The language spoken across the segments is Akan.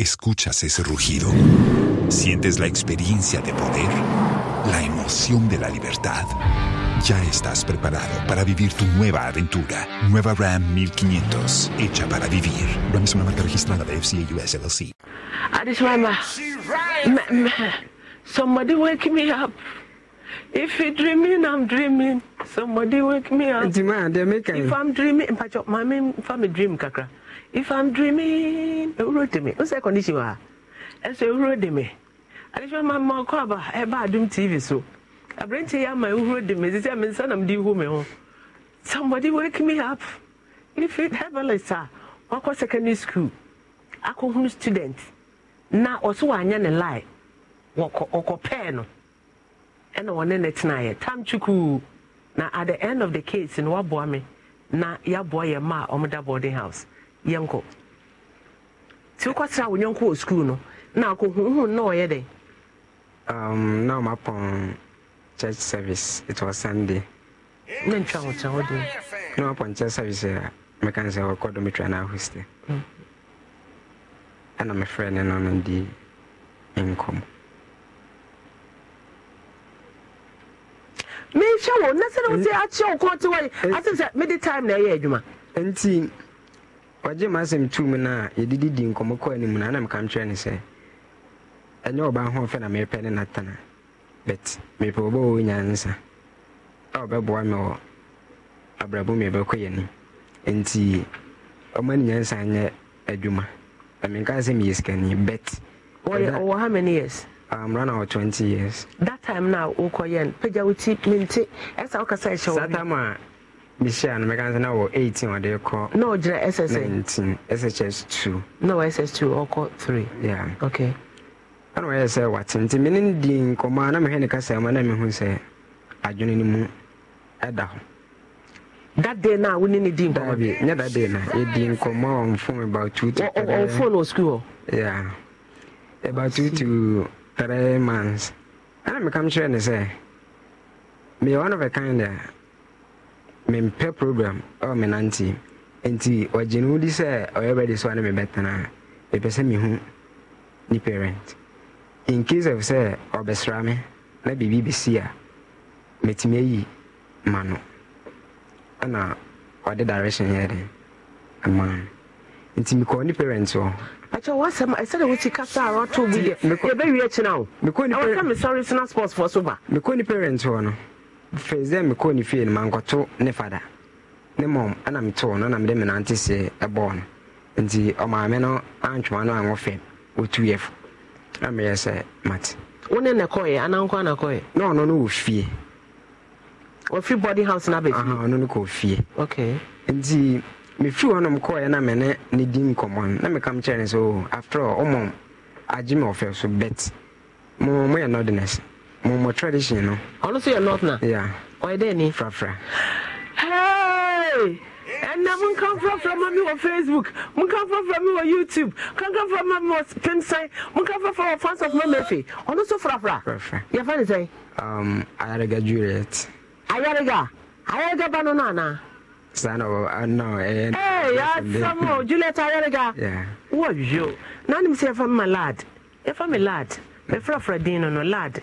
Escuchas ese rugido. Sientes la experiencia de poder, la emoción de la libertad. Ya estás preparado para vivir tu nueva aventura. Nueva Ram 1500, hecha para vivir. Ram es una marca registrada de FCA US LLC. mamá? somebody wake me up. If you're dreaming, I'm dreaming. Somebody wake me up. If I'm dreaming, if I'm dreaming, if I'm dreaming, if I'm dreaming, if if i'm dreaming ewuro de me n sɛ condition wa ɛsɛ ewuro de me adesua ma ma ɔkɔ aba ɛba adum tv so aberante yi ama ewuro de me sisi ɛmi nsa nam de ihu mi ho somebody wake me up if it herbalist a wakɔ secondary school akɔhunu student na ɔso wanyɛ ne lie wɔkɔ ɔkɔ pɛɛ no ɛna wɔne ne tenaeɛ tam chukwu na at the end of the case no waboa me na yaboa yɛ ma a ɔmo da boarding house. yɛnkɔ nti wokɔsra wo nyɔnko wɔ sukuu no na akɔhuhu na ɔyɛ dɛn um, na mapɔn church service it was sunday na ntwa wo kyerɛ na mapɔn church service a meka sɛ wɔkɔ dometwa no ahoste ɛna mefrɛ ne no no di nkɔm wo na sɛ wo sɛ akyeɛ wo te wɔ na ɛyɛ adwuma ɔgye ma asɛm tu mu no a yɛdidi di nkɔmmɔ anim no anam ne sɛ ɛnyɛ ɔbaa ho na merepɛ ne natana but mepɛ wɔ a ɔbɛboa me wɔ abrabɔ nti ɔma ne nyansa adwuma ɛmenka sɛ meyɛ sikani bet how many years ah, years that time na wokɔyɛ no pagya wo ti mente ɛsa wokasa ɛhyɛ wo mehyɛ a no mɛka sɛ na wɔ 18 ɔde kɔ na ɔgyina ss 19 sshs 2 na wɔ ss 2 ɔkɔ 3 yeah. okay. ɛna ɔyɛ sɛ wate nti mene no di nkɔmmɔ a na mehwɛ ne kasa mu na mehu sɛ adwene no mu ɛda hɔ that day na wo ne ne di nkɔmmɔ nyɛ that day na yɛdi nkɔmmɔ a ɔmfom about two to ɔmfom wɔ sukuu hɔ yeah about two to three months ɛna mekam kyerɛ ne sɛ meyɛ one of a kind a mempɛ program ɛwɔ me nante nti ɔgye ne wodi sɛ ɔyɛ bɛde sɛ ɔne mebɛtena mepɛ sɛ mehu ne parent in case of sɛ ɔbɛsra me na biribi bɛsi a mɛtumi ayi ma no ɛna ɔde direction yɛ den ama no nti mekɔɔ ne parent hɔ akyɛ wɔasɛm ɛsɛde wokyi kasa a wɔto bi deɛ yɛbɛwie akyina ne parent hɔ no fei sɛ mekɔɔ ne fie no mankɔto ne fada ne mmom ɛna metoo no na menante se ɛbɔɔ no nti ɔmaame no antwoma no anwɔ fam ɔtuyɛ fo na meyɛ sɛ mate wone na kɔɛ anankɔ anakɔɛ na ɔno no wɔ fie wɔfiri body house no abɛfie ɔno no kɔ fie nti mefiri hɔnom kɔɛ na mene ne di nkɔmmɔ no na mekam kyerɛ sɛ oh, after all agye me ɔfɛ so bet mmom moyɛ nɔdenese mo tradition no. ɔno nso yɛ north na. ya ɔyɛ dɛ ni. frafra. Hey! ɛnna monkamfrafra ma me wɔ facebook monkamfrafra me wɔ youtube fra ma me wɔ pimsɛn monkamfrafra wɔ fans of mamafe ɔno so frafra yɛfa ne sɛn um, ayarega juliet ayarega ayarega ba no no anaa saa na na ɛyɛ yɛasɛm o juliet ayarega wowɔ wio na nim sɛ yɛfa me lad yɛfa me lad mɛfrafra din no no lad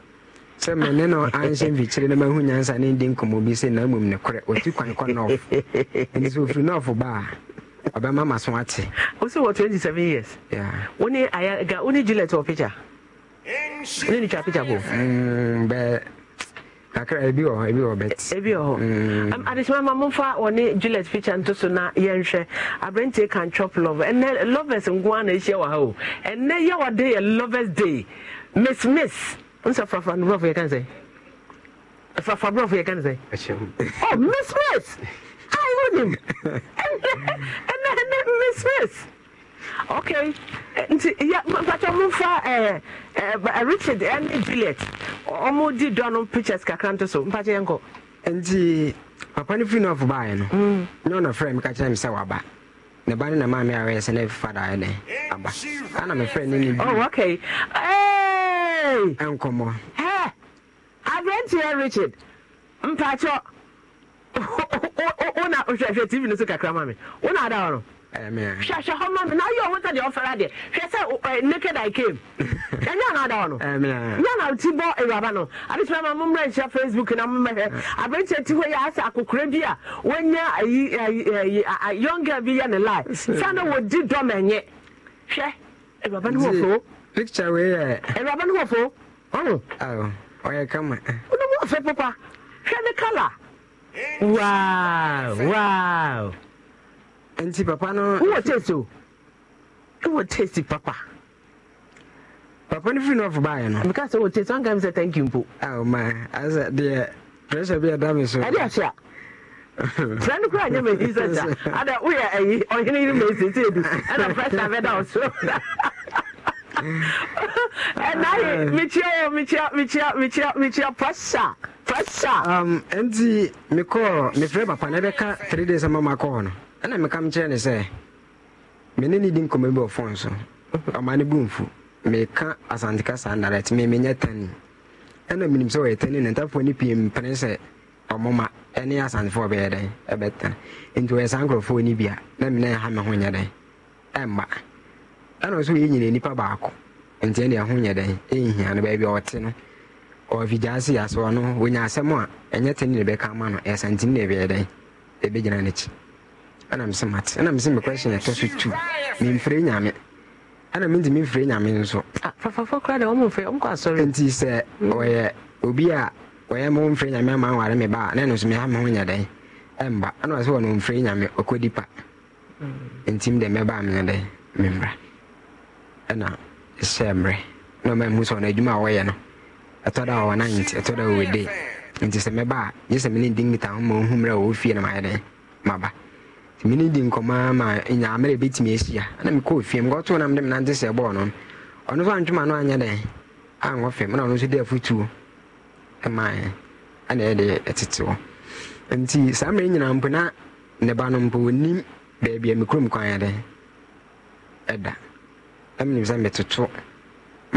sɛ mene no anhyɛ mfikyire na mahu nyansa ne ndi nkɔmmɔ bi sɛ na mmom ne korɛ ɔti kwan kɔ nɔf nti sɛ ɔfiri nɔfo baa ɔbɛma ma so ate wo wɔ 27 years wone ayaga wone juliet wɔ picture ne ne twa picture bo mm, bɛ kakra ebi wɔ hɔ ebi wɔ bet e, ebi wɔ hɔ mm. adesima ma momfa wɔne juliet picture nto so na yɛnhwɛ aberanteɛ kan chop love ɛnɛ lovers nko a na ɛhyia wɔ ha o ɛnɛ yɛ wɔ de yɛ lovers day miss miss nsa frafra no brɔfo yɛ kan sɛ frafra brɔfo yɛ kan sɛ oh miss miss i know him ɛnɛ ɛnɛ miss miss okay nti ya mpata mfa ɛɛ ɛɛ richard ɛne juliet ɔmo di dɔ no pictures kakra nto so mpata yɛn kɔ. nti papa no firi nɔɔfo baayɛ no na ɔna frɛ me ka kyerɛ me sɛ waba ne ba ne na maame a wɔyɛ sɛ ne fada ayɛ ne aba ana mefrɛ ne ne bi. oh okay. Eh, nkɔmmɔ aberanteɛ richard mpakyɛ wona hwɛhwɛ tv no so kakra ma me wona ada no hwɛhwɛ hɔ ma me na woyɛ ɔho sɛ deɛ ɔfɛre adeɛ hwɛ sɛ naked i came ɛnyɛ eh, eh, na eh, ada wɔ no nyɛ na woti bɔ awuraba no abɛtumi ma mommra nhyɛ facebook na mommɛhwɛ aberanteɛ ti hɔ yɛ asɛ akokora bi a wanya young girl bi yɛ ne lie sɛ na wɔdi dɔm ɛnyɛ hwɛ awuraba no wɔ picture wei yɛ. ɛwuraba ne wɔfo ɔmo. awo ɔyɛ kama. wọn bɛ fɛ papa hwɛ kala. waaw waaw. nti papa no. wowɔ taste o wowɔ taste papa. papa no firi nɔfo baayɛ no. mika sɛ wɔ taste wɔn kan mi sɛ thank you mpo. awo maa asɛ deɛ pressure bi ɛda mi so. ɛdi ahyia. sɛ no kora nyɛ ma sɛ gya ada woyɛ ayi eh, ɔhene yere ma ɛsiesie du ɛna pressure bɛda wo so ɛnaye mekyia wɔ mekyia pressa pressa um, ɛnti mekɔɔ mefrɛ papa na ɛbɛka 3 days ama makɔɔ no ɛna meka mekyerɛ ne sɛ mene ne di nkɔmmɔ bi ɔfon so ɔma ne bumfu meka asanteka saa nnaret memenyɛ tani ɛna menim sɛ ɔyɛ tani na ntafoɔ no pii mpene sɛ ɔmoma ɛne asantefoɔ bɛyɛ dɛn ɛbɛta nti ɔyɛ saa nkurɔfoɔ ni bia na mene ɛha me ho nyɛ dɛn ɛmma ɛna ɔso yɛ nyina nipa baako ɛho nyɛ dɛn ɛnhia no baabi ɔte no se no wɔnya asɛm a ɛnyɛ ne bɛka ama na ɛbɛyɛ dɛn ɛbɛgyina n'akyi ɛna mesɛ mate ɛna mesɛ me question ɛtɔ so tu memfrɛ nyame ɛna mente memfrɛ nyame nso ah, nti sɛ ɔyɛ obi a ɔyɛ ma womfrɛ nyame ama nware me ba a na ɛno so meha me ho nyɛ dɛn ɛmba ɛna ɔsɛ nyame ɔkɔdi pa mm. ntim dɛ mɛba a menyɛ dɛn ɛna ɛhyɛ mmerɛ na ɔma mu sɛ ɔno adwuma a wɔyɛ no ɛtɔ da ɔwɔ nant ɛtɔ da ɔwɔ de nti sɛ mɛba a nye sɛ mene di nkita ho ma ɔhu mmerɛ ɔwɔ fie na mayɛ dɛn maba nti mene di nkɔmmɔ ma nya mmerɛ bɛtumi ahyia na mekɔɔ fie mekɔtoo nam de menante sɛ ɛbɔɔ no ɔno so antwoma no anyɛ dɛn ankɔ fam na ɔno nso de afotuo ɛmaɛ ɛna ɛde ɛtete hɔ nti saa mmerɛ nyinaa mpo na ne ba no mpo ɔnim baabi a mekurom kwan yɛ dɛn ɛda na menim sɛ metoto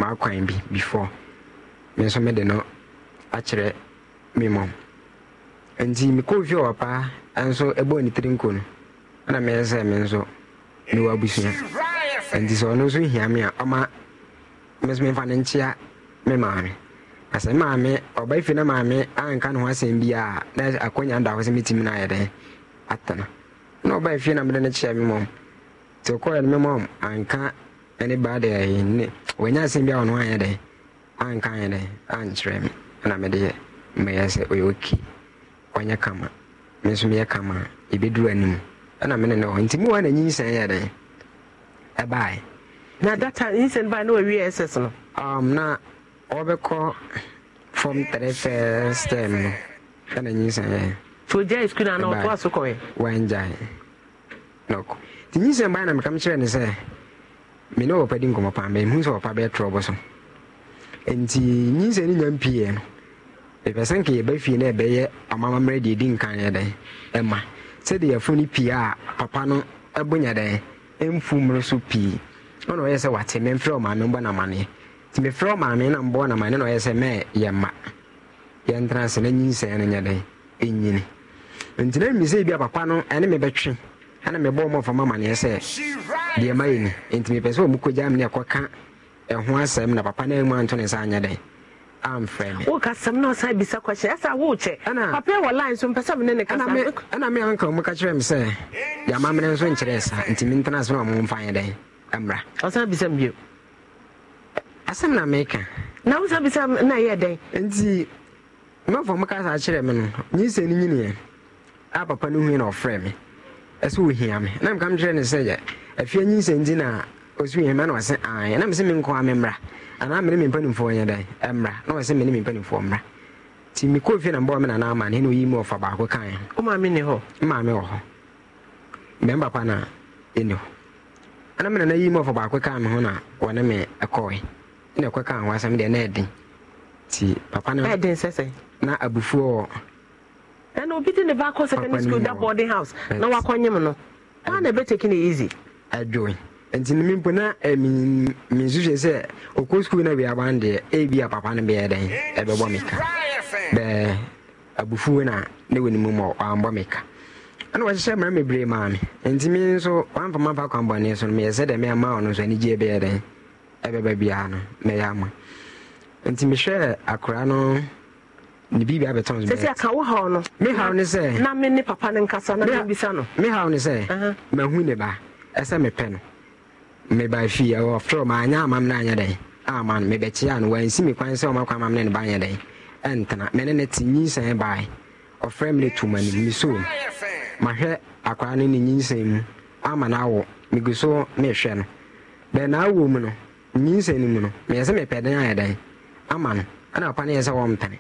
maakwan bi before me nso mede no akyerɛ me mmom nti mekɔɔ fie wɔ paa nso ɛbɔɔ ne tiri nko no ɛna meyɛ sɛ me nso mewɔ abusua nti sɛ ɔno nso hia me a ɔma me nso memfa no nkyea me maame na sɛ maame ɔba fie na maame anka ne ho asɛm bi a na akɔnya da hɔ sɛ mɛtumi no ayɛ dɛn atena na ɔba fie na mede no kyeɛ me mmom nti ɔkɔɛ no me mmom anka ɛne baa de ɛyɛ ne wɔnyɛ asɛm bi a ɔno anyɛ dɛ anka anyɛ dɛ ankyerɛ me ɛna mede yɛ mɛyɛ sɛ ɔyɛ oki ɔnyɛ kama me nso meyɛ kama a ɛbɛduru anim ɛna mene ne hɔ nti me wa na nyinsɛn yɛ dɛ ɛbaeɛ na data nyinsɛn baa na wɔwie ss no um, na ɔbɛkɔ fom tre first term um, no ɛna nyinsɛn yɛ fogyae skul na ɔtoa so kɔɛ wangyae nɔkɔ nti nyinsɛn baa na mekam kyerɛ ne sɛ me ne wɔpa di nkɔmmɔ paa mehu sɛ wɔpa bɛɛtorɔ bɔ so nti nyinsɛ no nya mpii no mepɛ sɛ nka yɛba fie no ɛbɛyɛ amamammerɛ deɛ ɛdi nkan yɛ dɛn ɛma sɛdeɛ yɛfo no pii a papa no ɛbonya dɛn ɛmfu mmere so pii ɔna ɔyɛ sɛ wate memfrɛ ɔmaame mbɔ namaneɛ nti mefrɛ ɔmaame na mbɔ namaneɛ na ɔyɛ sɛ mɛ yɛma yɛntena ase na nyinsɛ no nyɛ dɛn ɛnyini nti na mmi sɛ bi a papa no ɛne mebɛtwe ɛna mebɔ ɔmɔ ma amaneɛ sɛ deɛ ma yɛ ni nti mepɛ sɛ ɔmukɔgya me ne ɛkɔka ɛho asɛm na papa no mu anto ne nsa anyɛ dɛn amfrɛ me ɛna me anka ɔmu ka kyerɛ me sɛ deɛ ama mene nso nkyerɛ sa nti mentena asɛm a momfa nyɛ dɛn ɛmmra asɛm na meka na wosan bisa na ɛyɛ kasa kyerɛ me no nyisɛ no nyiniɛ a papa no hui na ɔfrɛ me ɛsɛ ohia e me na mka mkyerɛ no sɛ yɛ afia nyinsɛ nti na ɔsɛ ohia e me na ɔse aɛ na mesɛ menkɔ me memmra anaa mene me mpanimfoɔ nyɛ dɛn ɛmmra na ɔsɛ mene me mpanimfoɔ mmra nti mekɔɔ fie na mbɔɔ me nanaa ma ne na ɔyi mu ɔfa baako kae womaame ne hɔ maame wɔ hɔ mmɛmba pa na ɛni hɔ ana me nana yi mu ɔfa baako kaa me ho na wɔne me ɛkɔe na ɛkɔ kaa ho asɛm deɛ na ɛden nti papa no ɛden sɛ na abufuo ɛna obi de ne ba akɔ secondary school da boarding house na wakɔ nyim no wọn na ebe taking na easy. ɛdwoe nti ne eh, mi mpo na ɛmi mi nsu hwɛ sɛ okɔ school na bi aban deɛ ebi eh, a papa no bɛyɛ dɛn ɛbɛbɔ mi ka bɛɛ abufuo na ne wɔ ne mu ma ɔanbɔ mi ka ɛna wɔhyehyɛ mmerɛ bebree maa mi nti mi nso wɔamfa ma fa kwanbɔne so no meyɛ sɛ dɛm ɛma ɔno nso anigye bɛyɛ dɛn ɛbɛbɛ biara no mɛyɛ ama nti mehwɛ akora no. ne biribi abɛtɔn ne bɛyɛ sɛsɛ ka no me haw ne sɛ na me ne papa ne nkasa na me bisa no me haw ne sɛ mahu ne ba ɛsɛ mepɛ no meba fie ɛwɔ frɛ ma anyɛ amam no anyɛ dɛn ama no mebɛkye a no wansi me kwan sɛ ɔmakɔ amam no ne ba anyɛ dɛn ɛntena mene ne te nyinsɛn bae ɔfrɛ me ne toma no mesoo m mahwɛ akwaa no ne nyinsɛn mu ama no awo megu so mehwɛ no bɛɛ naawɔ mu no nyinsɛn no mu no meyɛ sɛ mepɛ den ayɛ dɛn ama no ɛna ɔpa ne yɛ sɛ wɔmpene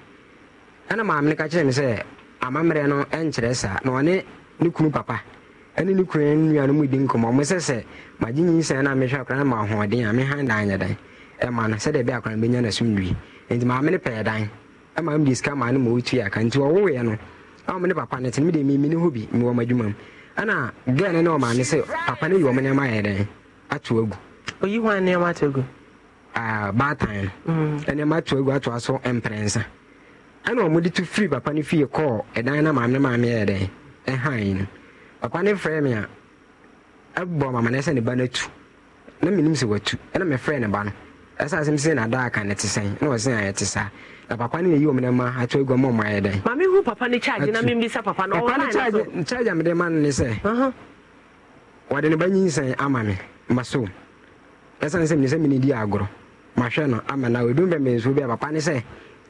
ɛna maame no ka kyerɛ me sɛ amammerɛ no ɛnkyerɛ saa na ɔne ne kunu papa ɛne ne kunu ne nua no mu di nkɔmmɔ ɔmo sɛ sɛ magye nyinsɛn no a mehwɛ akora no ma ahoɔden a mehan dan nyɛ dan ɛma no sɛdeɛ ɛbɛ akora no bɛnya no asomdwie nti maame no pɛɛ dan ɛma no de sika maa no ma ɔtua aka nti ɔwoeɛ no ɔmo ne papa no te no mede mimi ne ho bi mewɔ m'adwuma mu ɛna gɛɛ no ne ɔmaame sɛ papa no yi ɔmo nneɛma ayɛ dan ato agu oyi hɔ nneɛma ato agu ah, baatan mm. nneɛma ato agu atoa so mprɛnsa ɛna ɔmode to firi papa no fie kɔɔ ɛdan na maame maame yɛ dɛn ɛhan no papa no frɛ me a ɛbɔ mama no sɛ ne ba no atu na menim sɛ watu ɛna mefrɛ ne ba no ɛsɛ asɛm sɛ nadaaka ne te sɛn na ɔse a ɛte saa na papa no nayi ɔmene ma ato agua ma ɔma dɛn papa no charge papa a mede ma no ne sɛ wɔde ne ba nyinsɛn ama me ma so ɛsiane sɛ mene sɛ mene agorɔ mahwɛ no ama na ɔdum bɛ bi a papa ne sɛ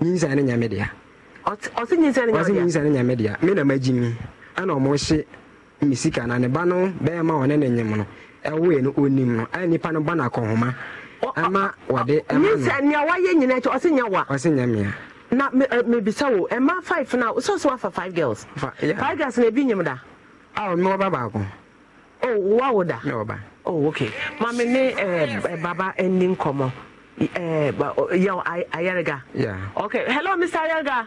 nyinsɛn ne nyame dea ɔse nyinsɛ no nyame dea me na magyi mi ɛna ɔmo hye me na ne ba no bɛɛma ɔne ne nyem no ɛwoe no ɔnim no ɛyɛ nipa no ba no ɛma wɔde ɛma wayɛ nyina kyɛ ɔse nya wa ɔse nya na mebisa wo ɛma five no sɛ so wafa five girls five girls na ebi nyim da awo me wɔba baako oh wo da me wɔba oh okay maame ne ɛɛ baba yeah okay hello mr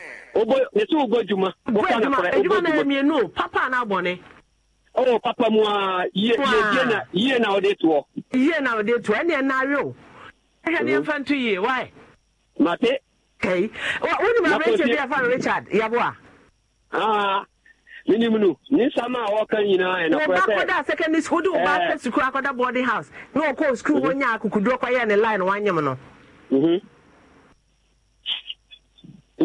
yɛsɛ wobɔ adwuma adwuma na mmienu papa na abɔne oh, papa mu yie na yie toɔ yie na toɔ o mm-hmm. ne nfa nto yie wae mate wonim bi richard menim no ne nsɛm a wɔka nyinaa secondary school wode pɛ sukuu akɔda boarding house sukuu hɔ nya ne line wanyem no mm-hmm.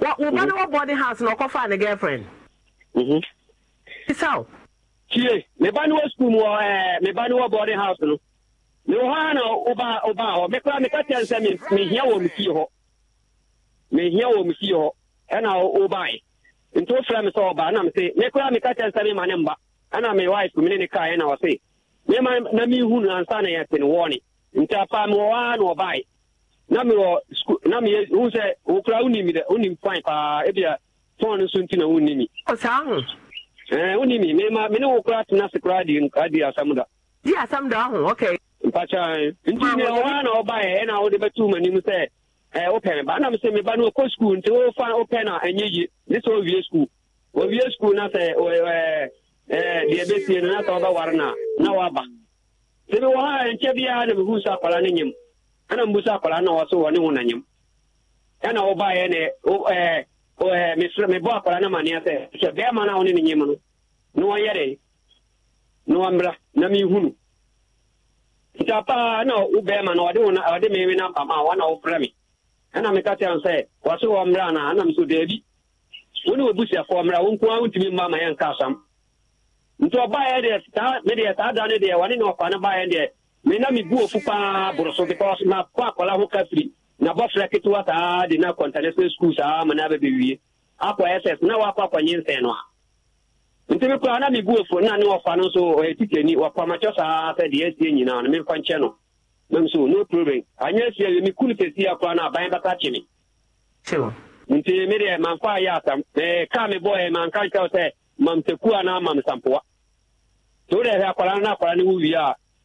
wo ba mhm. ne wɔ boarding house na ɔkɔfa ne girlfriend. Mhm. isaw. tie me ba ne wɔ school mu wɔ eh, ɛɛ me ba ne wɔ boarding house no me wɔ hɔ na ɔba ɔba hɔ me kura me ka kyɛn sɛ me me hia wɔ me fie hɔ me hia wɔ me fie hɔ ɛna ɔba yi nti o fira mi sɛ ɔba ɛna mi se me kura me ka kyɛn sɛ me ma ne mba ɛna me wife mi ne ne kaa ɛna ɔse me ma na mi hu no ansa na yɛ te ne wɔɔ ne nti apa mi wɔ hɔ na ɔba yi. na mewɔ school na sɛ wokora wonim dɛ wonim kwan paa ebia fɔn no nti na wonni mi ɔsaa wo kora tena se kora adi da di asam da ahụ nti ne ɔwa e, eh, na ɔbaeɛ ɛna wode bɛtu m'anim sɛ wopɛ me ba na mesɛ me no ɔkɔ nti wofa wopɛ no ɛnyɛ ne sɛ na deɛ bɛsie no no na sɛ mewɔ ha na mehu sɛ akwara ana mbusa akwara na ọsọ wọ ne ho ya na ɔba yɛ ne akwara na maneɛ sɛ sɛ bɛrima na ɔne ne nyɛm no na na wɔmmra na mehu no nta paa na na ọ wo na ɔde me me namba ma wɔn na wɔfrɛ na ana mesoro daabi wo ne wɔbusuafoɔ mmra wo nko ara wontumi mma ma yɛnka asam saa saa ne ne ba mena miguu ofu paa boroso de pa ma pa kɔla ho kafiri na bɔ fila ketewa saa de na kɔntanɛsɛ skul saa ma ah, na bɛ bewie akɔ ss na wakɔ akɔ nye nsɛn no ah, a nti mi kura na miguu fo na ne ɔfa no nso ɔyɛ tikeni ɔpamakyɛ saa sɛ deɛ asie nyinaa no memfa nkyɛ no mem so no problem anyɛ asie wie meku no sɛsi akora no aban bɛka kye me nti me deɛ mamfa ayɛ asam kaa me bɔɛ manka nkyɛw sɛ mamsaku anaa mamsampoa nti wodɛ hɛ akwaraa no na akwaraa no wo wie a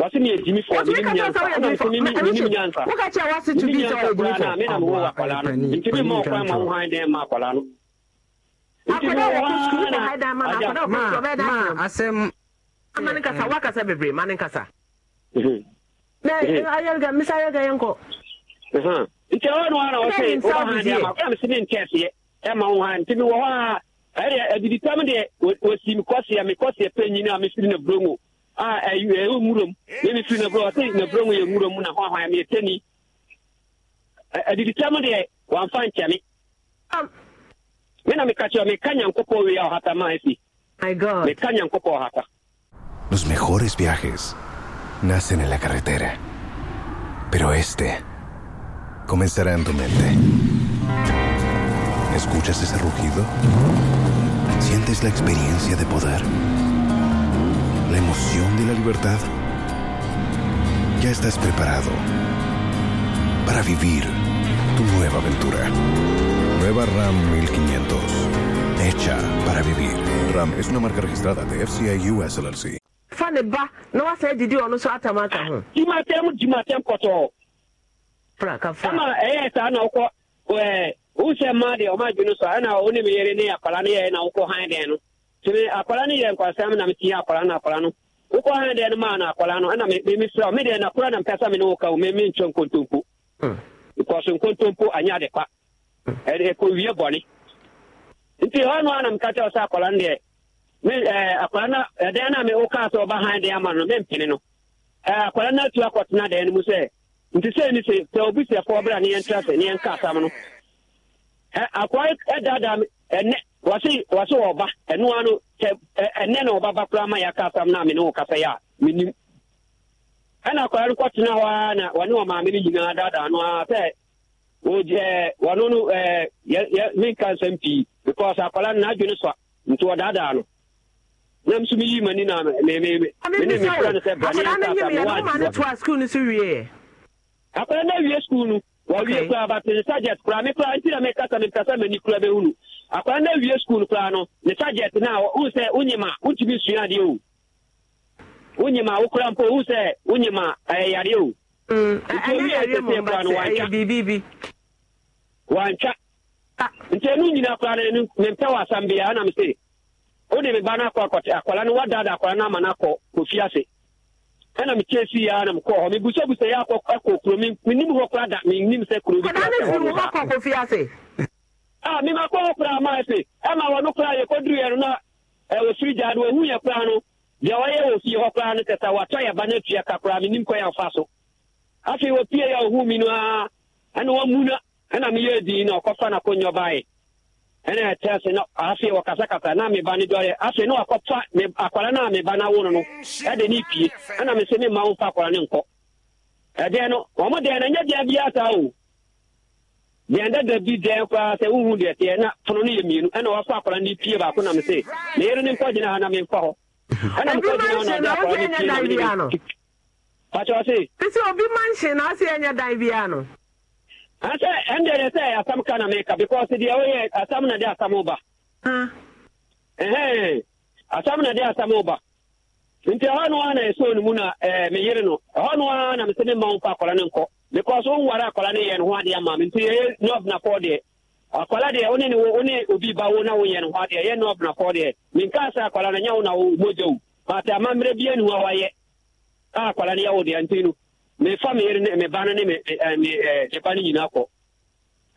wasi ni ejimi fɔ ni ni nyansa ni ni ni nyansa ni ni nyansa kura na mi na mi wo akwara no nti mi ma ɔkwa ma wo han dɛn ma akwara no. akwara wɔ ko sukuu bɛ ha dan ma na akwara wɔ ko sukuu bɛ dan ma. maa asɛm. ama ne kasa wakasa bebree ma ne kasa. mɛ ayɛlga misa ayɛlga yɛn kɔ. nti ɔwɔ ni wɔn na wɔsɛ wɔn han dɛn ma kura mi si mi ntɛɛseɛ ɛma wo han nti mi wɔ hɔ a ɛyɛ adiditam deɛ wosi mi kɔseɛ mi kɔseɛ pɛ nyina mi si mi na burongo. a ɛyɛ nwuram na mi firi nabrɛ ɔte nabrɛ mu yɛ nwuram na hɔ ahwan mi tani adiditam deɛ wamfa nkyɛne um. me na meka kyerɛ meka nyankopɔn wei a ɔhata ma asi meka nyankopɔn ɔhata Los mejores viajes nacen en la carretera, pero este comenzará en tu mente. ¿Escuchas ese rugido? ¿Sientes la experiencia de poder? la emoción de la libertad? Ya estás preparado para vivir tu nueva aventura. Nueva RAM 1500. Hecha para vivir. RAM es una marca registrada de FCI US LLC. Fane ba, na wasa edidi ọnu so atamata ho. Jimatem jimatem kọtọ. Praka fa. Ama ẹyẹ saa na ọkọ ẹ wusẹ mmaa deɛ ɔmo adwene so a ɛna ɔne mi yere ne akwara ne yɛ na ɔkɔ han deɛ no. tumi akwara no nkwasa nkwasɛm na tinye akwara no akwara e, e no wokɔ ha deɛ akwara no na mpɛ sɛ me ne wo ka wo memenkyɛ nkontompo because nkontompo anyɛ ade kwa ɛkɔwie nti hɔ no a na meka kyɛ sɛ akwara no deɛ akwara no a ama akwara nti a ne yɛntra sɛ ne m asam no e, wɔse wɔse ɔba ɛnoa no sɛ ɛnɛ na ɔbaba koraa ma yɛaka asam no a me wo kasa yɛ a menim ɛna akwaa no kɔtena hɔ a na wɔne ɔmaame no nyinaa daadaa no a sɛ wɔgyɛ wɔno no menka nsɛm pii because akwala no n'adwene so a nti wɔdaadaa no na nso meyi m'ani na mene mefrɛ no sɛ braneɛ akwala no awie skul no wɔwie koraa bat ne koraa me nti na mekasa mekasa m'ani kora akwara na ewie skuul koraa no ne sajet na wohu sɛ wonyima wontumi sua adeɛ o wonyima wokora mpo wohu sɛ wonyima ɛyɛ yareɛ o wantwa mm, nti ɛno nyina koraa no mempɛ wɔ asambea nam se wode eh, ah. me ba no akɔ akwara na no wadada akwara na ama no akɔ kɔfi ase ɛna mekyɛ si yɛ na mekɔɔ hɔ mebusabusa yɛ akɔ kuro menim hɔ koraa da menim sɛ kuro bi kɔfi ase a ah, mema kɔ hɔ koraa maa se ɛma wɔno koraa yɛkɔduruɛ no na ɛwɔ soro gyaa no wahu yɛ koraa no deɛ wɔyɛ wɔ fie hɔ koraa no sɛ sɛ watɔ yɛ ba no atua ka koraa menim kɔ yɛ so afei wɔpie yɛ ɔhu mi no a ɛna wamu na ɛna meyɛ din na ɔkɔfa no akɔnyɛ baeɛ ɛna ɛtɛ se na afei wɔkasakasa na meba no dɔre afei na wakɔfa akwara no a meba no awo no ɛde ne pie ɛna me se memma wo mfa akwara no nkɔ ɛdeɛ no ɔmo deɛ no ɛnyɛ deɛ biaa saa o deɛ dada bi dɛn koraa sɛ wohu deɛ teɛ na pono no yɛ mmienu ɛna wakɔ akɔra ne pie baako nam sɛ na yɛre ne nkɔgyina ha na menkɔ hɔ ɛna mkɔgyina pakyɛw se ɛsɛ obi ma nhye na ase ɛnyɛ dan biara no asɛ ɛndeɛ deɛ sɛ asɛm ka na meka because deɛ woyɛ asɛm na de asɛm ba ɛhɛn asɛm na de asɛm ba nti ɛhɔ no ara na ɛsɛ onimu na meyere no ɛhɔ no ara na mesɛ ne ma wo fa akɔra ne nkɔ because o nwara akwara ne yɛ ne ho adeɛ ma mi nti yɛ nɔf na kɔ deɛ akwara deɛ one ne one obi ba wo na wo yɛ ne ho adeɛ yɛ nɔf na kɔ deɛ mi nka sɛ akwara na nyɛ wo na wo mogya wo pata ama mmerɛ bi anu a wayɛ a akwara ne yɛ wo deɛ nti no me fa me yere ne ba no ne me ɛɛ me ɛɛ ne ba no nyinaa kɔ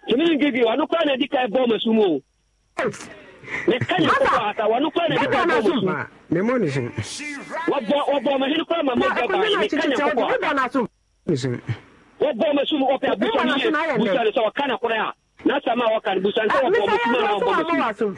tumi ne gigi wɔn kora na edi ka ɛbɔ ɔmo o ne ka nyɛ kɔkɔ ata wɔn kora na edi ka ɛbɔ ɔmo sum ne mo ne sum wɔbɔ wɔbɔ ɔmo hene kora ma mo gya ba ne ka nyɛ kɔkɔ ata wɔbɔ ma so mu ɔpɛ abusa no yɛ busa no sɛ ɔka na korɛ a na asɛm a wɔka no busa no sɛ wɔbɔ ma suma na ɔbɔ ma sum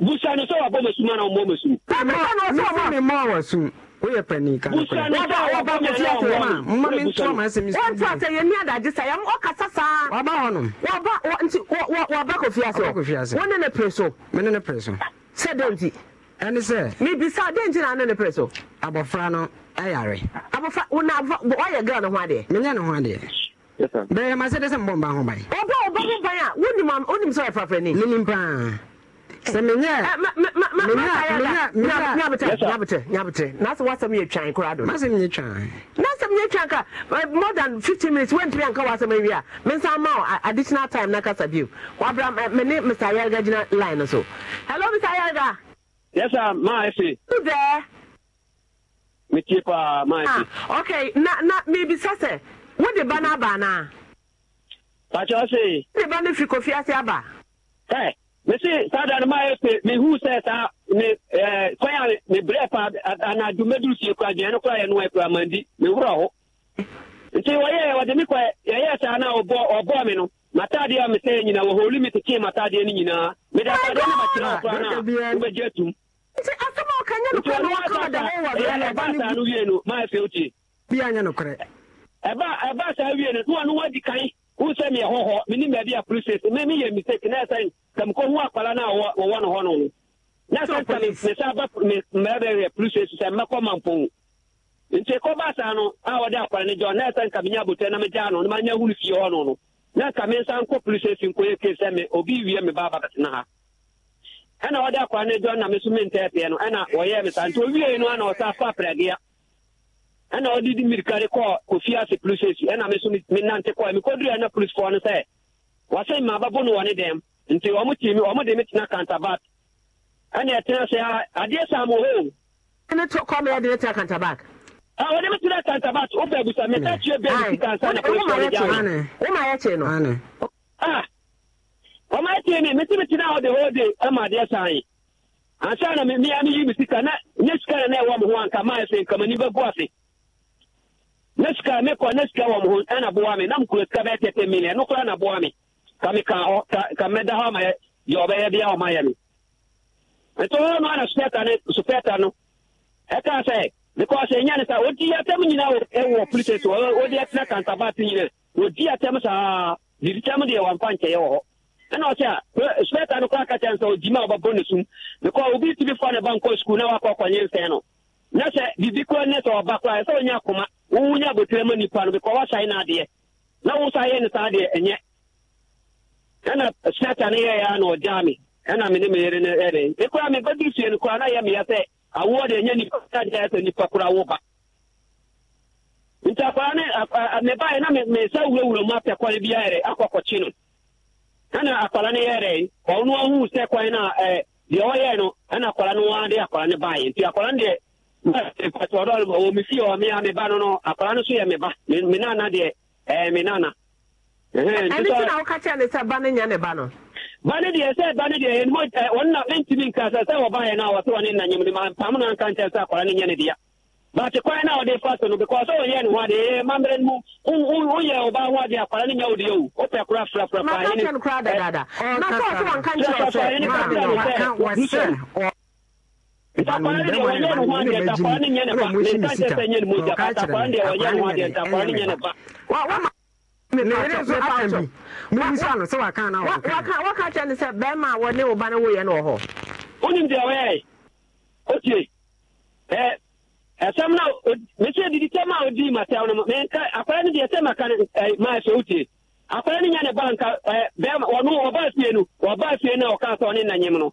busa no sɛ wɔbɔ ma suma na ɔbɔ ma sum mɛsɛ ne ma wɔ sum woyɛ pani ka busa no sɛ wɔbɔ ma suma na ɔbɔ ma mma mi ntoma ma asɛm mi sum ɛntua sɛ yɛ ni adagye sa yɛm ɔkasa saa wɔba hɔ nom wɔba nti wɔba kɔ fiase wɔne ne pere so mene ne pere so sɛ dɛ nti ɛne sɛ mebisa dɛ nti na ane ne pere so abɔfra no ɛyare abɔfra wona ɔyɛ gra ne ho adeɛ menyɛ ne ho adeɛ bɛyɛ ma sɛ dɛ sɛ mbɔ mba ho ban ɔbɛ ɔbɛ ho ban a wonim wonim sɛ ɔyɛfrafrani menim paa sɛ menyɛnyabetɛ nasɛ woasɛm yɛ twan koraa do nasɛm yɛ twan nasɛm yɛ twan ka more than 15 minutes woantumi anka woasɛm awie a mensa ma additional time na kasa bio wabra mene mr yarga gyina line no so hello mr yarga Yes, sir, my Who there? Me keep uh, my ah, Okay, na na maybe sase. What the banana banana? Pacho say. The banana fi kofi ase aba. Hey, eh, me say sada na my me who say sa me eh kwaya me breath ana du do si kwa je no kwaya no kwa mandi me wura ho. Nti wo ye wo de eh, me kwa sa na obo obo me no. matadeɛ a ya nyina wɔ hɔli metekee matadeɛ no nyinaa mede oh atadeɛ no ya koraa no wobɛgye atum no wie no wotie ɛbaa saa wie no na no wadi kan wohu sɛ meyɛ hɔhɔ menim baabi a polices me meyɛ mistake na sɛ no a wɔwɔ no hɔ no no na sɛ sɛ mesa ba mɛbɛyɛ polices sɛ mɛkɔ mampɔn nti kɔbaa saa no a wɔde akwala no gya na ɛsɛ nka menya abotɛ na megyaa no na manya hunu fie hɔ no no na ka me nsa nkɔ police station nkɔyɛ kee sɛ me obi wie me baa bɛtena ha ɛna ɔde akwa no adwa na me so mentɛɛpeɛ no ɛna wɔyɛɛ me saa nti owiei no ana ɔsa fa prɛgea ɛna ɔde di mirikare kɔɔ kɔfie ase police station ɛna me so menante kɔɛ mekɔdurɛ na policefoɔ no sɛ wɔse mmaababo no wɔ ne dɛm nti ɔmo timi ɔmo de me tena kantabat ɛna ɛtena sɛ adeɛ saa mo hoo ne kɔmeyɛde ne tena kantabat Ah, wọn mi tún kansa bat o bẹẹ busa mẹta tiẹ bẹẹ mi kansa na polisi ọrẹ jẹ o ma yẹ tiẹ nọ. ọmọ ayé tiẹ ni mẹtí ah, mi ti náà ọdẹ ọdẹ ẹ ma adìẹ sàn yìí ansa na mi miya mi yi mi sika na ne sika na ẹwà mi ho anka maa ẹsẹ nkama ni bẹ bu ase ne sika mi kọ ne sika mi ho ẹna sika bẹẹ tẹtẹ mi ẹnu kura na bu wa mi ka mi ka ọ ka mẹ da hɔ na supẹta ni supẹta because ɛnya ne sa odi atɛm nyinaa e wɔ politics wɔ odi atena kantabaate nyinaa odi atɛm saa didi tɛm deɛ wɔ hɔ ɛna ɔsɛ a spɛta no a ne sum because obi ne ba nkɔ sukuu na wakɔ akɔnye nsɛn no na sɛ biribi koraa ne sɛ ɔba koraa e sɛ ɔnya akoma wowunya abotire ma nipa no because wasae no adeɛ e na wosa yɛ ne saa deɛ ɛnyɛ ɛna spɛta no yɛyɛ a na ɔgyaa me ɛna me ne me yere no ɛne mekora mebɛdi sie no na awoɔ deɛ ɛnyɛ nipa tadeɛ sɛ nipa kora wo ba nti akwara ne mebaeɛ na mesa wurawura mu apɛ kwan bi ayɛrɛ akɔkɔkye no ɛna akwara no yɛrɛ ɔno ahu sɛ kwan no a deɛ ɔyɛɛ no ɛna akwara no ara de akwara no nti akwara no deɛ patɔdɔ me fie ɔ me a meba no no akwara no so yɛ meba me nana deɛ eh, me nana ɛno na woka kyerɛ ne sɛ ba no nyɛ ne ba no ba deɛ sɛ ba ne deɛ ɛnmɔ ɔnna ɛntumi nka sɛ sɛ wɔbaeɛ no a wɔsɛ wɔne nna nyim ne mampam no anka nkyɛ sɛ akɔra ne nyɛ ne dea but kwan na ɔde fa so no because ɔyɛ ne ho adeɛ mammerɛ no mu woyɛ ɔbaa ho adeɛ akwara ne nyɛ wo deɛ o wopɛ kora frafra paa ntakwara deɛ wɔnyɛ ne ho adeɛ ntakwara ne nyɛ ne ba ne nka nkyɛ sɛ nyɛ ne mogya ntakwara deɛ wɔnyɛ ne ho adeɛ ntakwara ne nyɛ ne ba na kyerɛ no sɛ bɛrima a wɔne wo ba no woyɛ no wɔ hɔ wonim deɛ wɔyɛ otie ɛsɛm no mesɛ adidi tɛm a odii matɛw no menka akwara no deɛ sɛ maka maa sɛ wotie akwara no nya ne na bɛrima ɔno ɔbaa fie no ɔbaa fie no a ɔkaa sɛ ɔne nanyem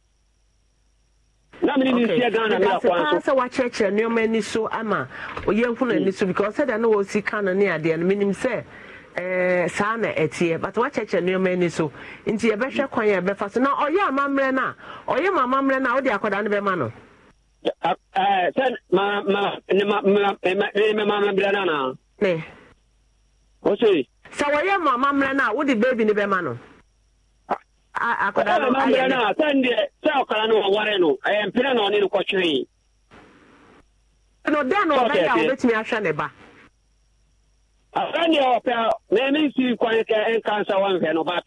na mene ne ghana ne akwa so sɛ wakyerɛkyerɛ nneɔma ani so ama yɛnhu no ani so because sɛdeɛ ne wɔsi ka no ne adeɛ no menim sɛ eh, saa na ɛteɛ but wakyɛkyɛ nneɛma ani so nti yɛbɛhwɛ kwan a yɛbɛfa so na ɔyɛ amammerɛ no a eh, ɔyɛ ma amammerɛ no a wode akwadaa no bɛma no sɛ mamammerɛ no anaa sɛ wɔyɛ ma amammerɛ no a wode baabi no bɛma no akwadaa no ayɛ no sɛndeɛ sɛ ɔkara no ɔware no ɛyɛ mpena na ɔne no kɔtwee no dɛn na ɔbɛyɛ a wobɛtumi ahwɛ ne ba sɛndeɛ ɔpɛ na me nsi kwan kɛ nka nsa wanhwɛ no but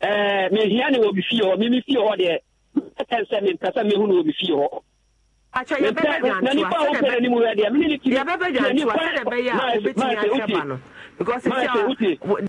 eh, mehia ne wɔ bi fie hɔ meme fie hɔ deɛ mɛtɛn sɛ mempɛ sɛ mehu no wɔ bi fie hɔ nanipa a wopɛ n'anim wɛ deɛ mene ne tiri yɛbɛbɛgyantoa sɛ ɛbɛyɛ a wobɛtumi because sɛ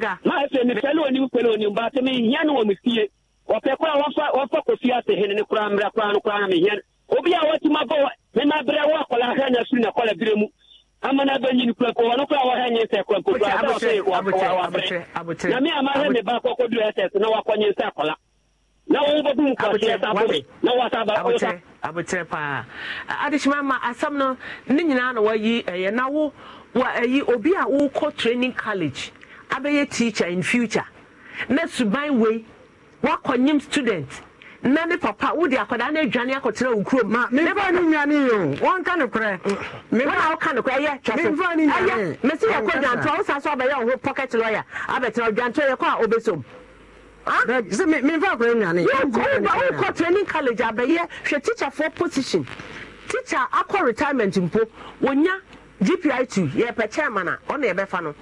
na afei mepɛ onye, onim baate mehia ne wɔ me fie ɔpɛ koraa wɔfa wɔfa kɔfie asehene ne koraa mmra koraa no koraa na mehia no eh, eh, obi a watumi abɔ mena berɛ wɔ akɔla na na kɔla berɛ mu ɔno koraa wɔhɛ nye sɛ na me me ba kɔkɔ na sɛ akɔla abotire paa ma no ne nyinaa na wayi ɛyɛ na wo abɛyɛ teacher in future na suban wei student na ne papa wode akwadaa no adwane akɔtena wo kurom mefa no nwane yɛ ọn ka wona woka nokorɛ ɛyɛ twɛsɛyɛ mɛsɛ yɛkɔ dwantoa wo sa so abɛyɛ wo pocket lawyer abɛtena dwantoa yɛkɔ a obɛsom wokɔ training college abɛyɛ hwɛ position teacher akɔ retirement mpo gpi2 yɛpɛ chairman a yɛbɛfa no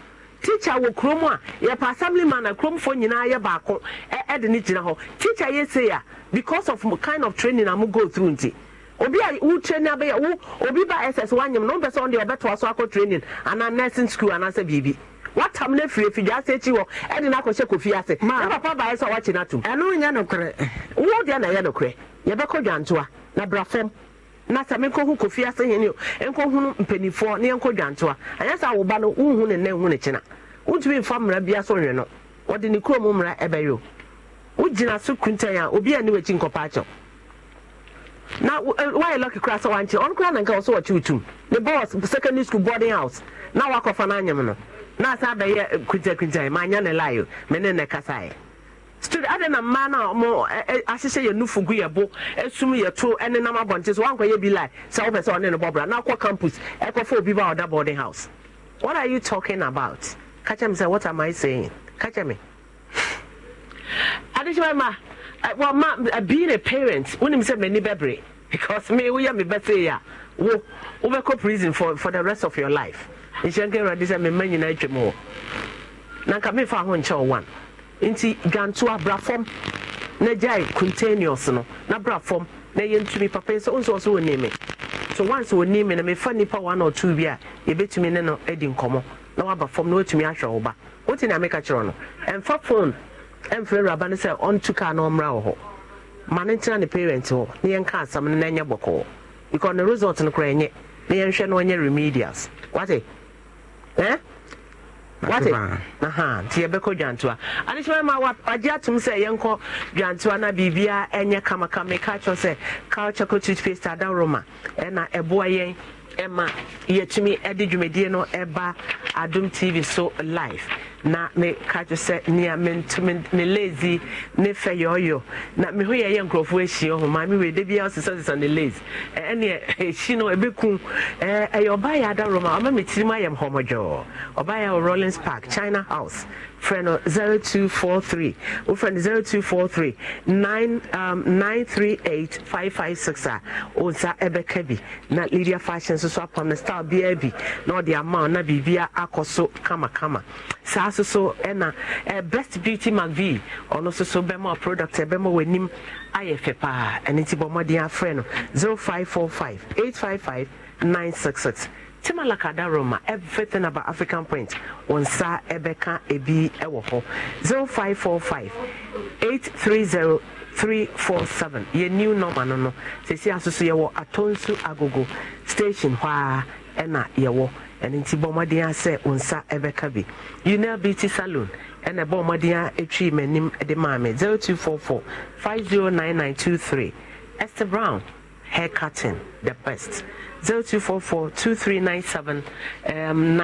teacher wɔ kurom a yɛpɛ assembly man a kuromfoɔ nyinaa yɛ baako ɛde ne gyina hɔ teacher yɛ sei a because of kind of training a mo go through nti obi a wo training abɛyɛ wo obi ba ss wanyam na wopɛ sɛ ɔde ɔbɛtoa so akɔ training ana nursing school ana anaasɛ biribi watam no afiri afidwa ase akyi wɔ ɛde no akɔhyɛ kofi ase na papa baeɛ sɛ wakye no atom ɛno nyɛ nokorɛ wo deɛ na ɛyɛ nokorɛ yɛbɛkɔ dwantoa na bra na sɛ menkɔhu kofi ase hene o ɛnkɔhunu mpanimfoɔ ne yɛnkɔ dwantoa anyɛ sɛ awoba no wonhu ne nna nhu ne kyena wontumi mfa mmara bia so nwe no wɔde ne kurom mmara ɛbɛyɛ o wogyina so kuntan a obi a ne wakyi nkɔpa akyɛw na wayɛ eh, lɔki kora sɛ wankye ɔno kora nanka wɔ so wɔkye wotum ne bɔs secondary school boarding house na wakɔfa no anyem no na asa bɛyɛ eh, kuntankuntan maanyɛ ne lae o mene ne kasaeɛ still adɛ na mmaa no a ɔmo ahyehyɛ yɛ nufu gu yɛ bo esum yɛ to ɛne nam abɔnten so wankɔ yɛ bi lai sɛ ɔpɛ sɛ ɔne ne bɔbra na akɔ campus ɛkɔfɔ obi ba ɔda boarding house what are you talking about kakyɛ mi sɛ what am i saying kakyɛ mi adekyema ma eh, well ma eh, being a parent wonim sɛ m'ani bɛbere because me woyɛ me bɛsɛ yɛ a wo wobɛkɔ prison for for the rest of your life nhyɛnkɛ awurade sɛ mema nyinaa atwam hɔ na nka mefa ho nkyɛ wo one nti dwanto abra fam na gyae containers no na bra fam na yɛ ntumi papa sɛ ɔnso ɔso wɔn nimi so once wɔn nimi na mefa nipa one or two bi a yɛbɛtumi ne no adi nkɔmɔ na waba fam na wɔtumi ahwɛ wo ba wote na meka kyerɛ no ɛmfa phone ɛmfrɛ awuraba no sɛ ɔntu kaa na ɔmmra wɔ hɔ ma ne ntena ne parent hɔ na yɛnka asɛm no na ɛnyɛ bɔkɔɔ because ne result no koraa ɛnyɛ na yɛnhwɛ na ɔnyɛ remedials wate eh? wate aha nti yɛbɛkɔ dwantoa adekyerɛ ma wagye atom sɛ yɛnkɔ dwantoa na biribia ɛnyɛ kamakama ka kyerɛ sɛ culture co toothpaste adaroma ɛna ɛboa yɛn ɛma yɛtumi de dwumadie no ɛba adom tv so live na meka kyerɛ sɛ nea me lazy ne fɛ yɔyɔ na meho yɛyɛ nkurɔfoɔ ahyia ho maame wei da biara sesa sesa ne lazy ɛneɛ ɛhyi no ɛbɛku ɛyɛ ɔbaa yɛ adaroma ɔma metirim ayɛ hɔmɔdwɔɔ ɔbaa yɛ wɔ rollins park china house frɛ no three wofrɛ no 0243 938 556 a ɔnsa ɛbɛka bi na lydia fashion nso so apam no style biara bi na ɔde ama na biribia akɔ so kamakama saa nso so ɛna ɛ eh, best beauty mcv ɔno nso so bɛma product ɛbɛma w'anim ayɛ fɛ paa ɛne ti bɔ mmɔden afrɛ no zero five five five five four eight nine six six 966 timalakada roma everything about african print wọn nsa ɛbɛka ebi ɛwɔ hɔ three 830 347 yɛ new number no no sɛsi asoso yɛwɔ atonsu agogo station hɔ a ɛna yɛwɔ ɛno nti bɔ mmɔden a sɛ wo nsa ɛbɛka bi unel beauty salon ɛna zero two four four five zero nine nine two three esther brown hair cutting the best 0244-2397-92 um,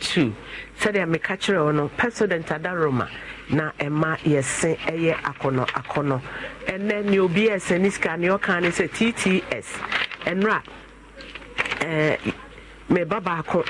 sɛdeɛ meka kyerɛ wɔ no pɛso de ntada roma na ɛma yɛse ɛyɛ akɔnɔ akɔnɔ ɛnɛ ne obi ɛsɛ ne sika ne ɔka ne sɛ tts ɛnora meba baako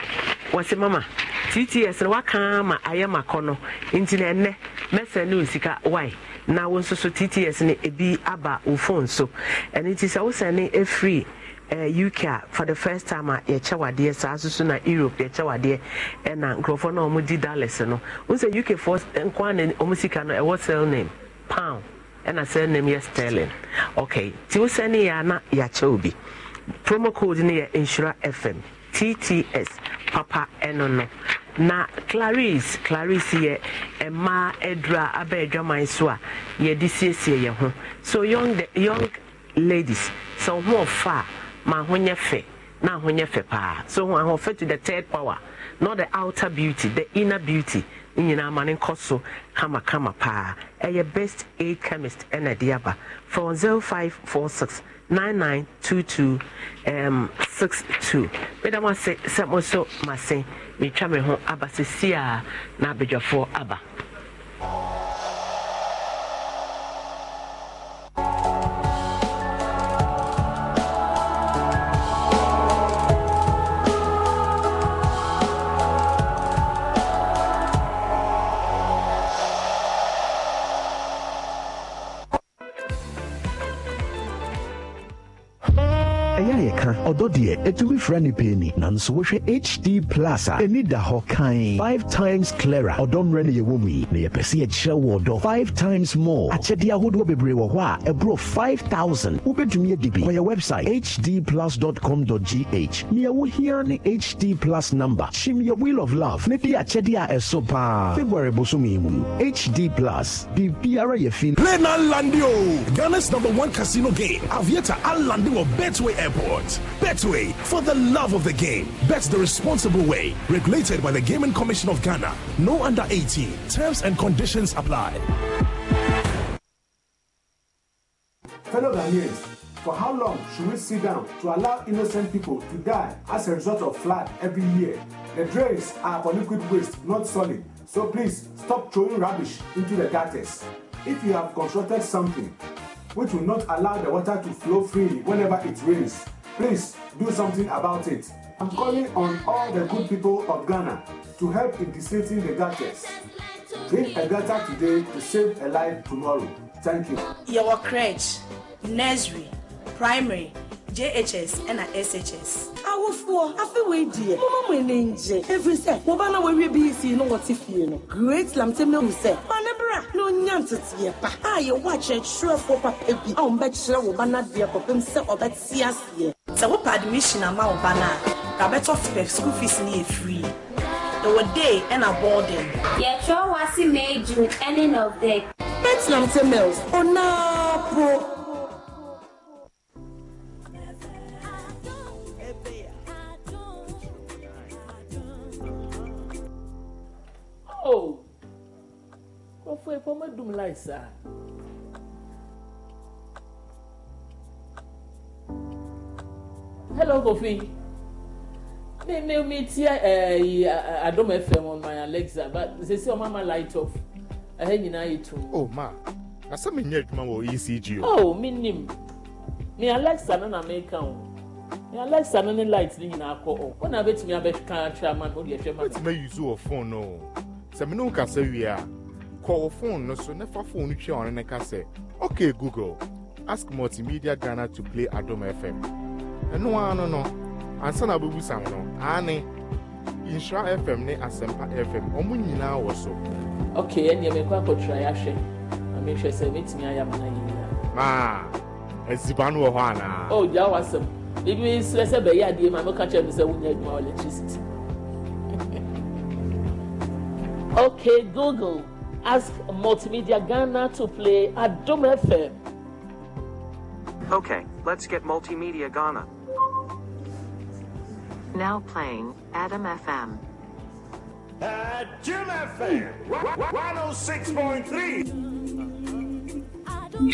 wɔse mama tts no wakaa ma ayɛ makɔ no nti na ɛnnɛ mɛsɛ ne wo sika wae na wo nso so tts no ebi aba wo fone so ɛno nti sɛ wosɛne ɛfiri eh, uk a for the first time a yɛkyɛ wadeɛ saa so so na europe yɛkyɛ wadeɛ ɛna nkurɔfoɔ no ɔmo di dallas no wo sɛ uk foɔ nko ana ɔmo sika no ɛwɔ sell name pound ɛna sell name yɛ sterling okay nti wosɛne yɛ a na yɛakyɛ obi promo code no yɛ insura fm tts papa ɛno no na clarice clarice yɛ mmaa adura aba adwaman so a yɛde siesie yɛn ho so young de, young ladies sɛ ɔho ɔfa a ma ho nyɛ fɛ na ho nyɛ fɛ paa so ho ahoɔfɛ to the third power not the outer beauty the inner beauty nyinaa ma ne nkɔ so kamakama paa ɛyɛ best aid chemist ɛna ɛde aba from six 9922 um, 62 meda mo ase sɛ mo so mase metwa me ho aba sɛsi a na abadwafoɔ aba ɔdɔ deɛ ɛtumi frɛ ne pɛ nanso wohwɛ hd plus a ɛni da hɔ kan 5 times clara ɔdɔ mmerɛ no yɛwɔ mu yi na yɛpɛ sɛ yɛkyerɛ wo ɔdɔ 5 times more akyɛdeɛ ahodoɔ bebree wɔ hɔ a ɛborɔ 5000 wobɛtumi adi bi wɔyɛ website hdplus.com.gh nea wohia ne hd plus number kyim yɛ wheel of love ne de akyɛdeɛ a ɛso paa february bosom yi mu hd plus biribiara yɛ fi play na landio ghana's number one casino game aviator alandi wɔ betway airport Betway, for the love of the game. Bet the responsible way. Regulated by the Gaming Commission of Ghana. No under 18. Terms and conditions apply. Fellow Ghanaians, for how long should we sit down to allow innocent people to die as a result of flood every year? The drains are for liquid waste, not solid. So please stop throwing rubbish into the gutters. If you have constructed something which will not allow the water to flow freely whenever it rains, Please do something about it. I'm calling on all the good people of Ghana to help in deflating the gutters. Drink a gutter today to save a life tomorrow. Thank you. Your crèche, nursery, primary, JHS, and SHS awofoɔ afewei deɛ moma mo ani ngye ɛfiri sɛ wɔba na wɔawie bi fie no wɔte fie no great lamte mehu sɛ ɔne bra na ɔnya nteteɛ pa a yɛwɔ akyerɛkyerɛfoɔ papa bi a wɔmbɛkyerɛ wo ba nadeɛ kɔpem sɛ ɔbɛte aseɛ e. sɛ wopɛ admission ama wo ba no a rabɛtɔ fipɛ school fees e e no yɛ free ɛwɔ day ɛna boarding yɛtwerɛ wase may june ending of day bet lamte mills ona po atɔ yi fɔ medum la yi saa. hello kofi mi mi mi ti ɛɛ adom fm on my alexa but sisi ɔmo ama light off ɛhɛ eh, nyinaa yi tum. o oh, ma asɛm nyɛ adwuma wɔ ecg o. o oh, mi nim mi alexa nana na mi ka o mi alexa nana ne light ne nyinaa kɔ o wɔn na bɛtumi abɛka atwa ama no o deɛ ɛhwɛ ma mi. o ti ma yi zu wɔ phone no sɛ mi ne nkasa wie kọwọ fon no so na fa fon no twia ɔno ne ka sɛ ok google ask multimedia ghana to play adom fm ɛno ara no no ansa na abubusa nọ no aane nhyira fm ne asɛmpa fm ɔmo nyinaa wɔ so ok ɛnneɛ mekɔ akɔtwerɛ yɛahwɛ na mehwɛ sɛ mɛtumi ayɛ ama no nyinaa maa aziba no wɔ hɔ anaa o oh, gyaa wasɛm ebi srɛ sɛ bɛyɛ adeɛ ma meka kyerɛ me sɛ wonya adwuma electricity ok google Ask Multimedia Ghana to play at Dome FM. Okay, let's get Multimedia Ghana. Now playing Adam FM. At Jim FM, 106.3.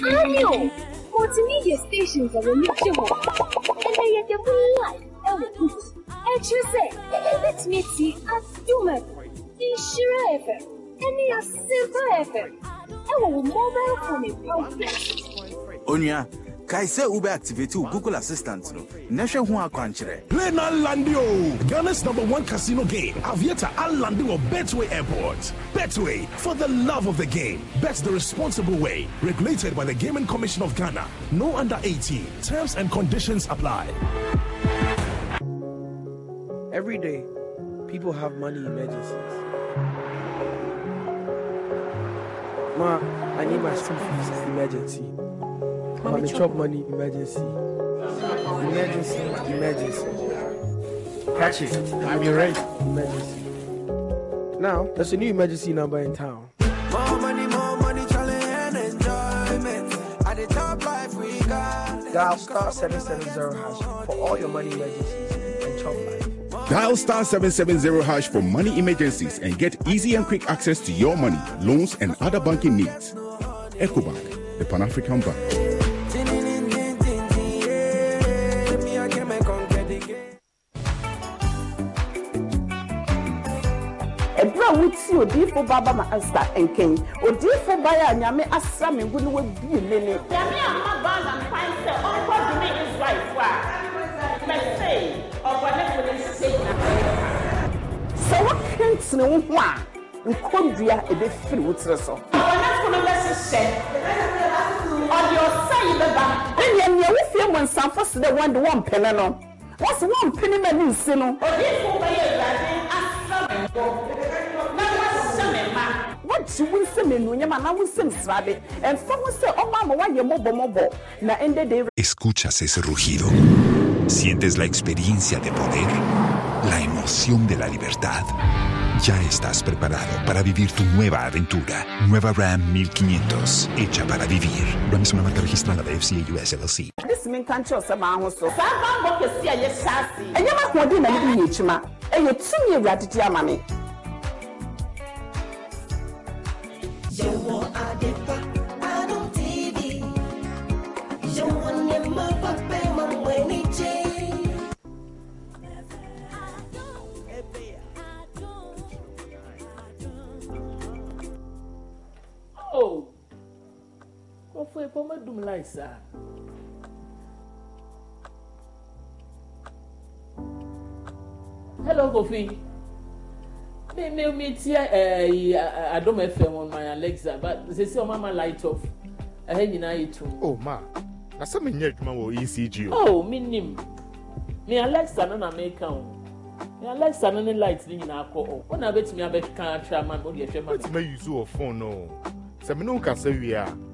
Radio! Multimedia stations are remarkable. And they are the life. And you say, let me see a Jim The Shira any a simple FM. Ẹ̀wọ̀n mobile phone problem. Onua, kae sɛ wobɛ activate google assistant no na hu akwanchere. akwankyerɛ play no Landio. ghana's number one casino game aviata alande betway airport betway for the love of the game bet the responsible way regulated by the gaming commission of ghana no under 18 terms and conditions apply every day people have money emergencies Ma, I need my school fees emergency. Mommy, Mommy chop money emergency. Emergency, emergency. Catch it. I'm your rent. Emergency. Now, there's a new emergency number in town. More money, more money, challenge enjoyment. At the top life we got. Dial star 770 hash for all your money emergencies. Dial star 770 hash for money emergencies and get easy and quick access to your money, loans, and other banking needs. EcoBank, the Pan African Bank. ɛberɛ a odiifo ba ba ma nkɛn odiifo a nyame asra me ne wabie me ne nyame a ma ba na sɛ a mɛsei ɔbɔnefo ne sene wo ho a nkɔdua ɛbɛfiri e wo tiri so. ɔnafo no bɛhyehyɛ ɔde ɔsa yi bɛba. ɛnìyɛ wo fie mu nsanfo si dɛ wɔn de wɔn mpene no wɔn si wɔn mpene ma ne nsi no. odiifo bɛyɛ awurade asra mi bɔ na wɔahyɛ mi ma. wɔgye wo nsɛm enuonyam anaa wo nsɛm srabe ɛnfa ho sɛ ɔmo ama wɔayɛ mɔbɔmɔbɔ na ɛndɛ de. escuchas ese rugido sientes la experiencia de poder la emoción de la libertad. Ya estás preparado para vivir tu nueva aventura. Nueva Ram 1500, hecha para vivir. Ram es una marca registrada de FCA US LLC. pé kó má dùn láì sá. hello Kofi me me me tie eh, ẹyi eh, eh, Adom FM on my Alexa but sisi ọmọ ama light off ẹhẹ nyinaa yẹ tum. o ma na sẹ mi n yẹ adwuma wọ ECG o. o oh, mi nim mi Alexa no na mi ka o mi Alexa no ne light ne nyinaa kọ o ọ na bẹ tumi abẹ kan atwa ama mi o de ẹhwẹ ma mi. bẹ tumi ayi zu wọ fone no sẹ mi n'o kasa wie a.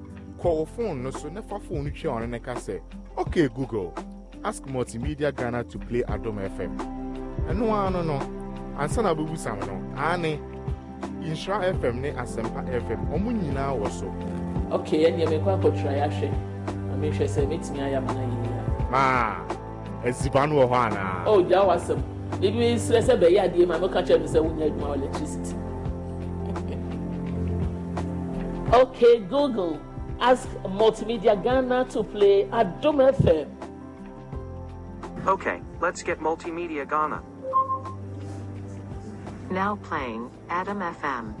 kọọ fon no so nefa fon no twia ɔno ne ka sɛ ok google ask multimedia ghana to play adom fm ɛno ara no no ansa na abɛbusam no aane nhyira fm ne asɛmpa fm ɔmo nyinaa wɔ so ok ɛneɛ mekɔ akɔtwerɛ yɛahwɛ na mehwɛ sɛ mɛtumi ayɛ ama no maa no wɔ hɔ anaa bibi serɛ sɛ bɛyɛ adeɛ ma mɛka kyerɛ me sɛ wonya adwuma electricity ok google Ask Multimedia Ghana to play at Dome FM. Okay, let's get Multimedia Ghana. Now playing Adam FM.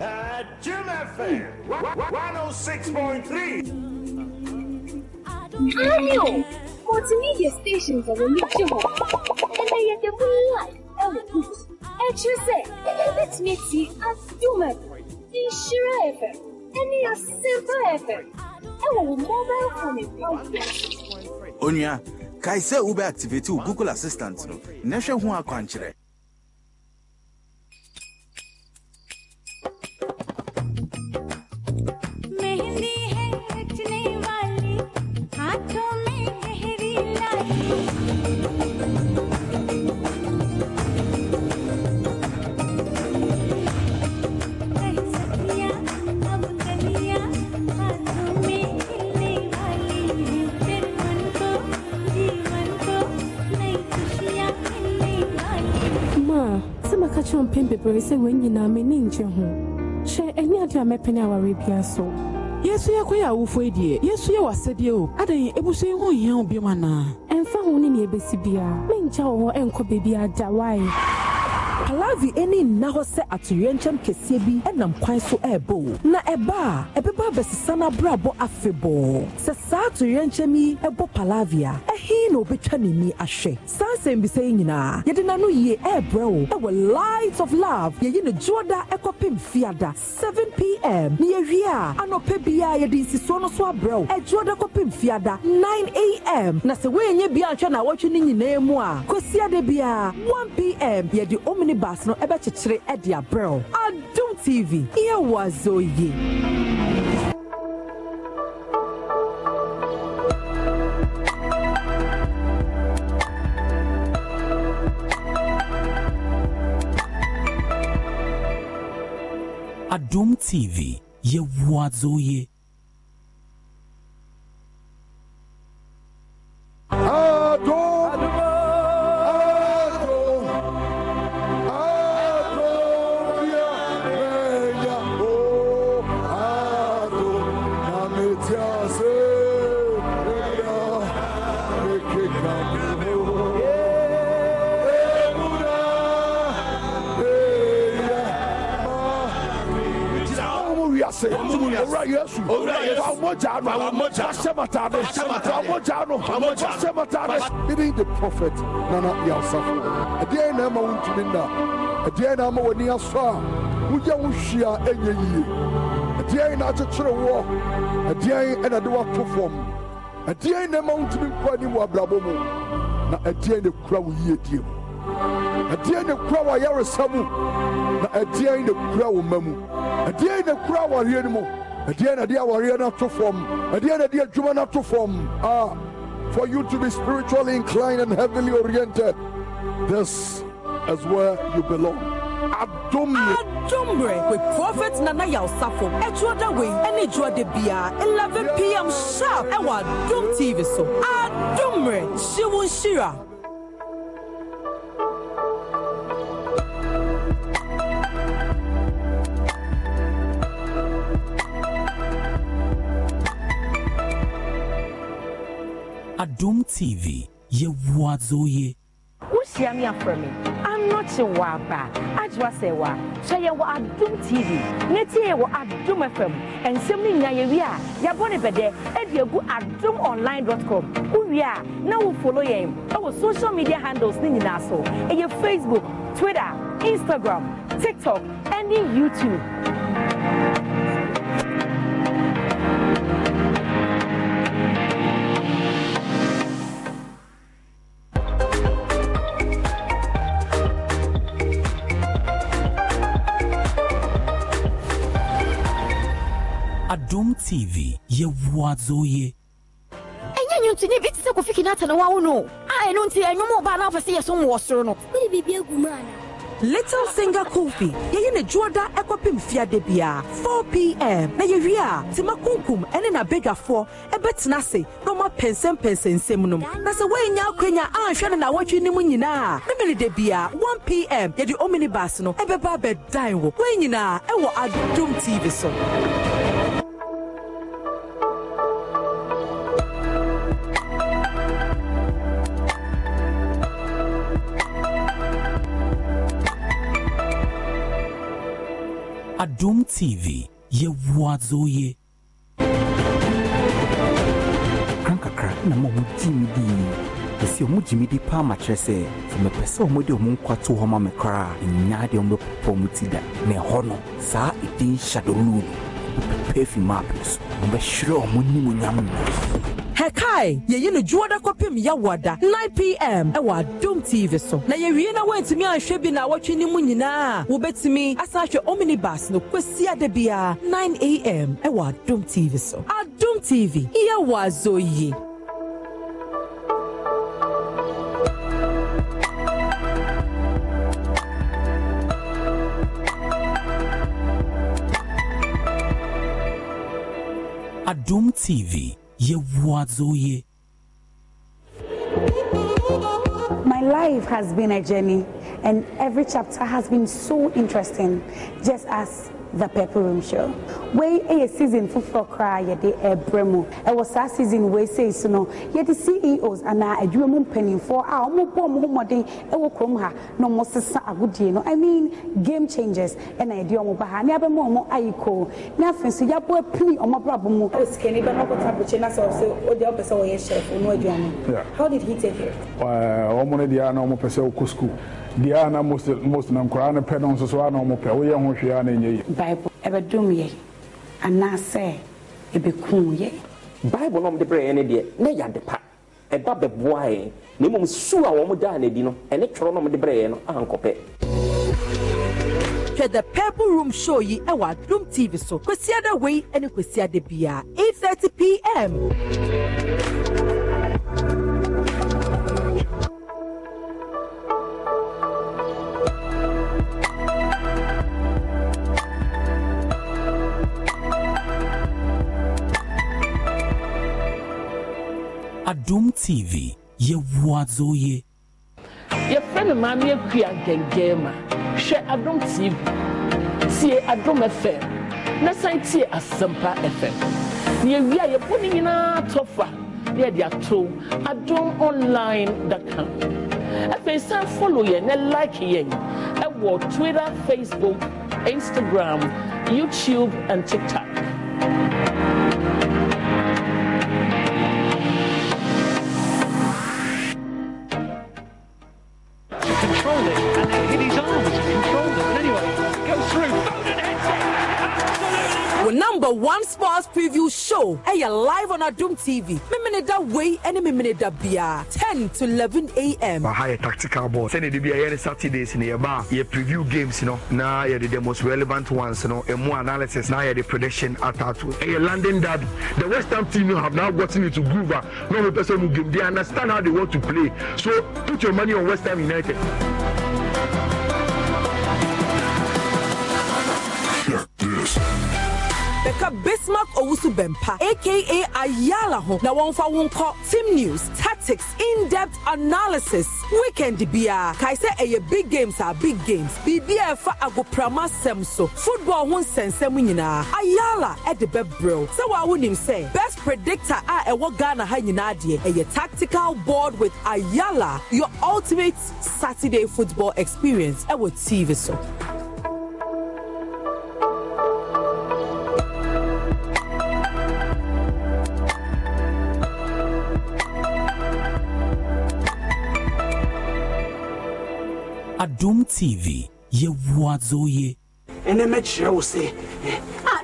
At Jim FM 106.3. Daniel! Multimedia stations are reachable. And they are the real life elements. And you say, let me see a Doom FM, the Shira FM. any as simple effort. ɛwɔ mobile phone ɛkɔ. onua kae sɛ wobɛ activate wo google assistant no na hwɛ ho kyerɛw mpɛn bebree sɛ wɔn nyinaa m'ani ngye ho hyɛ ɛne ade a mɛpene aware bia so yesu yɛ kɔyɛ awofo yi deɛ yesu yɛ wasɛdeɛ o adan ebusu yi ho hia wo biom anaa ɛmfa ho ne nea ebesi biara menkyɛ wɔ hɔ ɛnkɔ baabi ada wae palavi ani nna hɔ sɛ atoyerɛnkyɛm kɛseɛ bi nam kwan so ɛrebɔ na ɛba a ɛbɛba abɛsesa n'abrabɔ afebɔɔ sɛ saa atoyerɛnkyɛm yi ɛbɔ palavi a ɛhe na obɛtwa ne ni ahwɛ saa nsɛm bisa yi nyinaa yɛde n'ano yie ɛrebrɛ wo ɛwɔ light of love yɛyi ne juoda ɛkɔpem fiada 7pm ne yɛwie a anɔpɛ biara yɛde nsisuo no so abrɛ wo ɛjuoda e kɔpem fiada 9am na sɛ woɛnyɛ bia nhwɛ na awɔtwe no nyinaa mu a kɔsiada biara 1pm yɛde omni bars no ɛbɛkyekyere ɛde abrɛw adum tv yɛwɔ azɔ yie. Adum TV, ye wazoye. Even the prophet, Nana Yasaf. A dear Nama Wintinda, a dear Nama Wania Sa, Uyawushia, Enya, a dear Natural War, a dear and a dua perform, a dear Nama Wintin Kwaniwa Blabomo, a dear the crowd year. A dear the crowd Yarasamu, a dear in the crowd Mamu, a dear in the crowd Yanimu ɛdeɛ dear, ɛde awareɛ no ato fam ɛdeɛ na ɛde adwuma no ato fam ah for you to be spiritually inclined and heavily oriented this is where you belong adomre. adomre with prophet nana yaosafo ẹtúọdà Any ẹni de bíà eleven pm sharp ẹwà adom tv so adomre ṣíwúnṣíra. Adom TV, Yewuazoye. wohyia me afrɛ me anɔkye wɔ aba agyewa sɛ wɔ a hwɛ yɛn wɔ adom tv ne tie yɛ wɔ adom fm And no nya yɛwie a yɛbɔ ne bɛdɛ ɛde agu e adom online dot com wowie a na e social media handles ne nyinaa so e your facebook twitter instagram tiktok and youtube TV yɛ wɔadzo yie ɛnyɛ nti ne bi te sɛ kofi kinata na wawo no a ɛno nti ɛnwom ɔbaa na afɛ sɛ yɛ som wɔ soro no wode biribi agu mu ana Little Singer Kofi. Yeye ne juoda ekwapim fiade bia. 4 p.m. Na yewia tima kunkum ene na bedwafo ebetena se no ma pensem pensensem nom. Na se wenya akwenya anhwe ne na wotwe nim nyina. Memele de bia 1 p.m. Ye omini omnibus no ebeba bedan wo. Wenyina ewo Adum TV so. Adum TV yɛwoa zo ye. Kran kakra na ma ɔmo gyimi di. Ɛsi ɔmo gyimi di paa ma kyerɛ sɛ sɛ mepɛ sɛ ɔmo de ɔmo nkwa to hɔ ma me koraa nyaa deɛ ɔmo bɛpopɔ ɔmo ti da. Na ɛhɔ no saa ɛdin hyadoluu no ɔmo pɛpɛ fi maa so ɔmo bɛhwerɛ ɔmo nimonyam no hɛkae yɛyi no dwoɔ da kɔpem yɛwɔ da 9 pm ɛwɔ adom tv so na yɛwie na woantumi anhwɛ bi na awɔtwe no mu nyinaa wobɛtumi asan ahwɛ omnibus no kwasi ada biara 9 am ɛwɔ adom tv so adom tv yɛwɔ azɔ yi Adum TV My life has been a journey, and every chapter has been so interesting, just as the Pepper room show wei ɛyɛ season foforɔ koraa yɛde ɛbrɛ mu ɛwɔ e saa season wei sei so no yɛde ceos anaa adwuma mu mpanimfoɔ a wɔbɔ wɔn ho mmɔden ɛwɔ e kurom ha na wɔsesa agodie no i mean game changers ɛna e yɛde wɔn ba ha ne abɛma wɔn ayi koo ne afei nso yɛabɔ apini wɔn abrabɔ mu. o sikani bɛ n'akɔta abirikyi na sɛ ɔsɛ o deɛ ɔpɛ sɛ ɔyɛ chef onu aduane. how did he take it. wɔn mo ne deɛ ana wɔn pɛ sɛ ɔkɔ school deɛ a na most no nkoraa no pɛ no nso so a na ɔmopɛ woyɛ ho hwee a na ɛnyɛ yie bible ɛbɛdom yɛ anaasɛ ɛbɛkum yɛ bible no ɔmde berɛɛ no deɛ na yɛ ade pa ɛba bɛboa yɛn na mmom su a wɔn daa n'adi no ɛne twerɛ no ɔmde berɛɛ no ankɔpɛ hwɛ the purple room show yi ɛwɔ adum tv so kwasiada wei ne kwasiada biara 8:30 pm Adum tv yɛwoa dzoye yɛfrɛ no maame akua gɛngɛn ma hwɛ adom tv tie adom fm na san tie asɛmpa fm na yɛwie a yɛbɔ no nyinaa tɔfa na yɛde ato adom online dacom afei san follow yɛn na like yɛn ɛwɔ twitter facebook instagram youtube and tiktok hey, ɛyɛ live on adum tv mímini da wei ɛne mímini da bia ten to eleven a.m. baha yɛ tactical ball sɛni it bi a yɛ ne saturdays ni yɛ ba yɛ preview games you know. yɛ de the most relevant ones you no more analysis na yɛ the prediction atato ɛyɛ london derby the west ham team have now gotten into groove ah no person who game they understand how they want to play so put your money on west ham united. Check this bɛka bismark owusu bɛmpa aka ayala ho na wɔmfa wo team news tactics in-depth analysis weekend Kai kae sɛ ɛyɛ big games are big games biribi a agoprama semso. football ho nsɛnsɛm nyinaa ayala ɛde bɛbrɛw sɛ wɔa wonim say, best predictor a ɛwɔ ghana ha nyinaa deɛ ɛyɛ tactical board with ayala your ultimate saturday football experience ɛwɔ tv so adom tv yɛwoa dzoye ɛnɛ mɛkyerɛ wo sɛ eh. ah,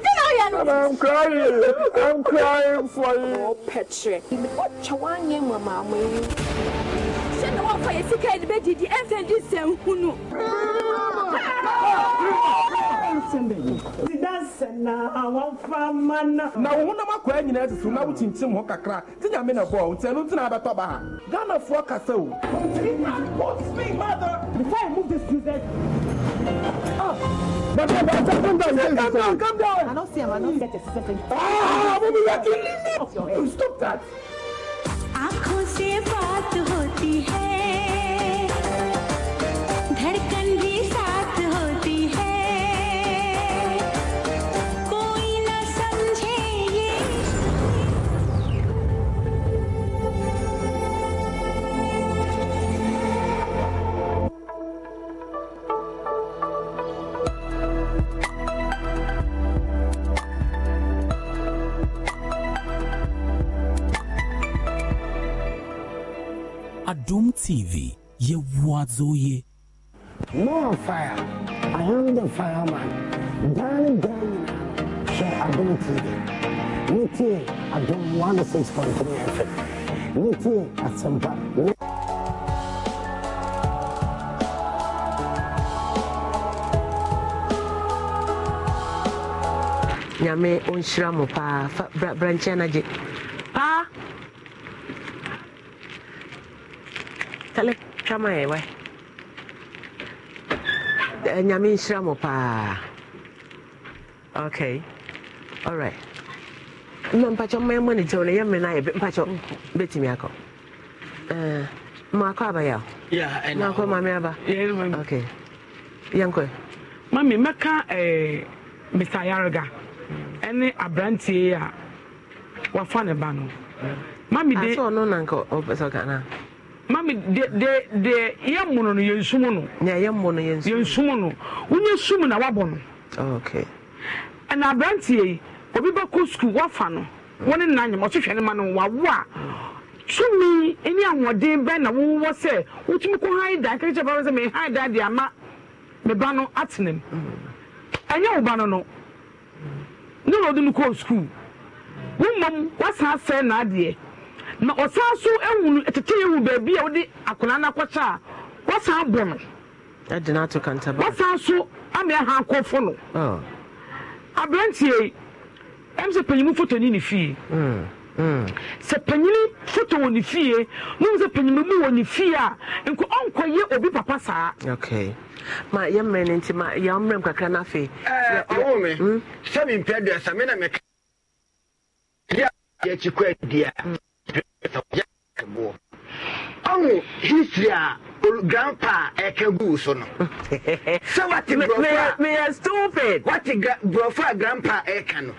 I'm crying. I'm crying for you. Oh, Patrick. What you want, Mama? Send one for your sick and bed. The infant is saying, "Who knows?" na wo honam akɔa nyinaa susu na wokyinkyim ho kakra nti nyame na bɔɔ nti ɛno nti na abɛtɔ ba ha ghanafoɔ kasa o But come down, come down, come down, I don't see him, I don't get a second. Ah, mommy, you're killing me. Stop that. आंखों से बात होती है Doom TV ya watsoye. More fire. I am the fireman. Danny chega a Adom TV. Niti Adom 106.3 FM. Niti a nyame ɔnhyira mo paa fa brankyɛ no gye kale twama yɛ wɛ nyame nhyira mo paa okay alright na mpakyɛ mma ɛmɔ ne gyɛw no yɛ mmɛ no ayɛ mpakyɛ bɛtumi akɔ maakɔ abayɛ o maakɔ mame aba okay yɛnkɔ mami mɛka eh, mr yarega ɛne aberantie a wafa ne ba no mami de asɛ ɔno nanka ɔpɛ sɛ ɔka mami de de de yɛ mmono no yɛn sum no. yɛ mmono yɛn sum. no wonye na wabɔ no. Oh, okay. ɛna aberanteɛ yi obi bɛ kɔ sukuu wafa no wɔn ne nan ne ma no wawo a tumi ahoɔden na sɛ wotumi kɔ dan sɛ dan de ama no mu ɛnyɛ wo ba no no ne na ɔde no sukuu wasan na na ọsan so ehunu tete ehu beebi a wɔde akwụna no akɔkyɛ a wɔsan bɔ no. ɛdi n'ato kantaba. wɔsan so ama ɛha akɔfo no. Ah. aberanteɛ yi ɛm sɛ panyin foto ni ne fie. Mm, mm. sɛ panyin foto wɔ ne fie mu sɛ panyin mu wɔ ne fie a nko ɔnkɔyɛ obi papa saa. okay ma yɛ mmerɛ ne nti ma eh, yɛ mmerɛ mu kakra n'afɛ. ɛɛ ɔwɔ mi hmm? sɛbi mpɛ deɛ sami na mɛ kɛ. yɛ akyi kɔ ɛdi a. Mm. ɛwɔ ɔmo history a uh, grandpa ɛka eh, gu so no sɛ wate borɔfo a meyɛ stupid wate borɔfo a grandpa ɛka no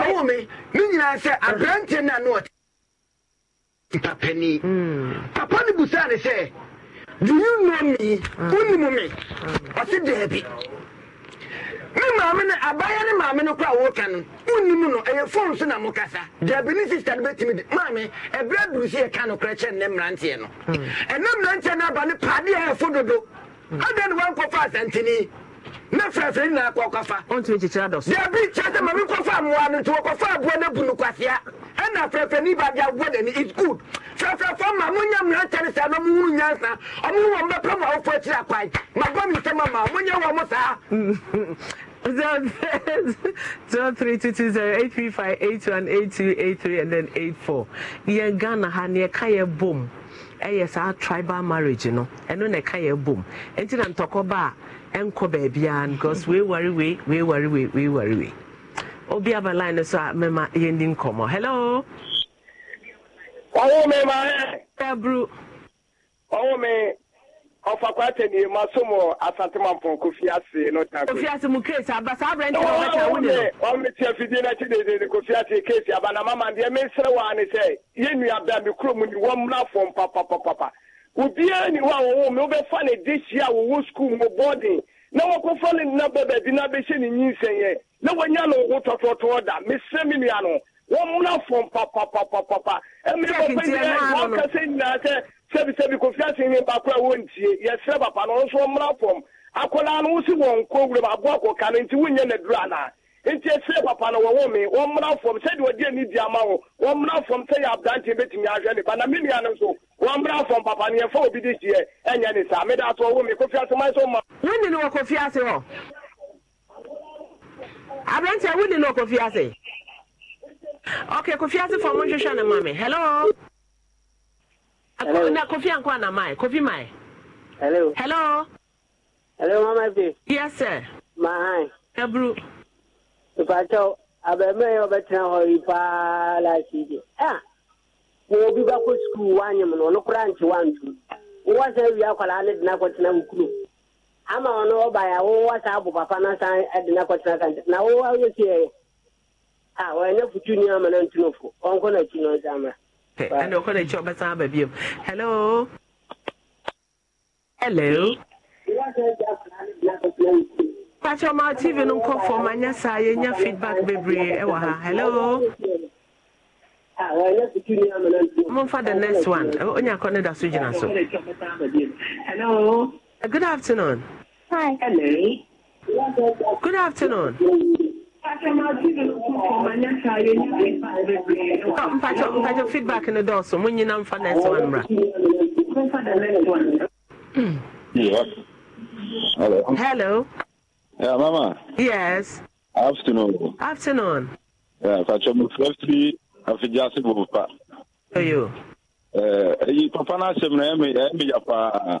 ɔwo me ne nyinaa sɛ aberante no a na ɔte papa hmm. papa no busaa ne sɛ do you know me ah. wonim me ɔse daabi ne maame no abaya ne maame no kora wɔka no wonnim no ɛyɛ so na mokasa dabini sister no bɛtumi de maame ɛberɛ duru sɛ yɛka nokorɛ kyɛ nnɛ mmeranteɛ no hmm. mmeranteɛ no aba a ɛfo dodo hmm. adɛn ne wankɔfa asanteni ne frɛfrɛ nyinaa dabi kyɛ sɛ mmoa no nti wɔkɔfa aboa no abu no kwasea ɛna frɛfrɛ ne aboa dani is good ma na ɔmohunu nyansa twelve three two two zero eight three five eight one eight two eight three and then eight four yɛn ghana ha ne yɛka yɛ bom ɛyɛ e saa tribal marriage e no ɛno na ɛka yɛ bom e nti na ntɔkɔ ba a ɛnkɔ baabiara because wei wari wei wei wari wei wei wei obi aba line no so a mɛma yɛndi nkɔmmɔ hello. ɔwɔ mi maa. ɛburu. ɔwɔ mi ọfọ akwata ni ma so mo asantemanfo kofi ase no ta ko. kofi ase mu keesi aba saa abirante na ọba kya wuli. wọn mi tiẹ fidie n'akyi dede ni kofi ase keesi aba na mama deɛ mi nsere wa ni sɛ yɛn nua bɛn mi kuro mu ni wɔn mu na fɔm papapapa obiara ni hɔ a wɔwɔ mu wɔbɛfa ne de hyia a wɔwɔ sukuu mu bɔɔden na wɔkɔfa ne nna bɛ baabi na bɛhyɛ ne nyinsɛn yɛ na wɔnya no wo tɔtɔtɔ da mesrɛ me nua no wɔmmra fɔm papapapapa ɛmmerɛ papa nyinaa wɔnkasɛ nyinaa sɛ sɛbisɛbi kofi ase nye baako a wɔntie yɛsrɛ papa no nso ɔmmra fam akwadaa no wosi wɔn nko wura mu aboa kɔka no nti wonyɛ n'aduru anaa nti ɛsrɛ papa no wɔwɔ me wɔmmra fam sɛdeɛ ɔde ani di ama wo wɔmmra fam sɛ yɛ aberanteɛ bɛtumi ahwɛ ne ba na me nua no nso wɔmmra fam papa ni yɛmfa obi de hyeɛ e ɛnyɛ ne saa meda so ɔwɔ me kofi ase man e so ma wone no wɔ kofi ase hɔ aberanteɛ wone no wɔ kofi ase okay kofi ase fam nhwehwɛ no ma me hello Hello. Kofi Anko na Mai. Kofi Mai. Hello. Hello. Hello, Mama B. Yes, sir. My. Ebru. If I tell, ọ yìí paa láti ibi. Wọ́n sukuu wá nyẹ̀mú náà ọ̀nà kúrò àǹtí wá ntú. Wọ́n sẹ́ wíyá kọ́lá á lè dín akọ tẹ̀ Ama ọ̀nà papa ka Na wọ́n wá yẹ sí ẹ̀ yẹ. Wọ́n yẹ ni futu ní ti pɛ ɛna ɔkɔ n'akyi ɔbɛsan aba bio hello hello pakyɛ ɔma tv no nkɔ fam anyɛ saa yɛnya feedback bebree ɛwɔ ha hello momfa the next one onya kɔ ne da so gyina so good afternoon Hi. Good afternoon. mpakyɛ feedback no dɔɔso mo nyina mfa next one mmra hello yeah, mama yes afternoon afternoon yeah, mpakyɛ mofrɛfiri afigyase bopa ɛyi papa no asɛm no ɛmeyɛ paa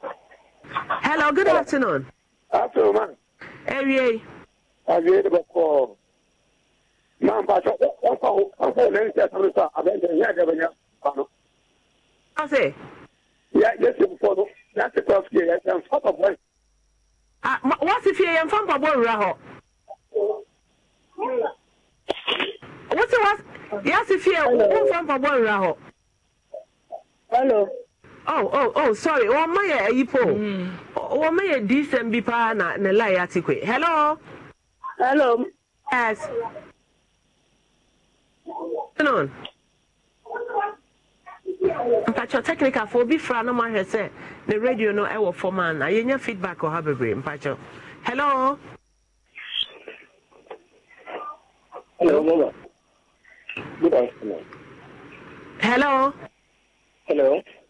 Hello, good afternoon. Afternoon, man. Ewie. Ewie de bako. Man ba cho o ko o ko le nse sanu sa abe de ya de banya pano. Ase. Ya yes you for no. That's the cross here. Yes, I'm top of one. Ah, what's if you am from Pabo Raho? What's what? Yes, if you am from Pabo Raho. Hello. oh oh oh sorry wɔn mma yɛ ayi po wɔn mma yɛ dsm bi na ne line ati kwe hello. hello. yes. afternoon. mpakyɛ technical fo obi fra no mahwɛ sɛ ne radio no ɛwɔ fam a na yɛnya feedback ɔha bebree mpakyɛ hello. hello mama good afternoon. hello. hello.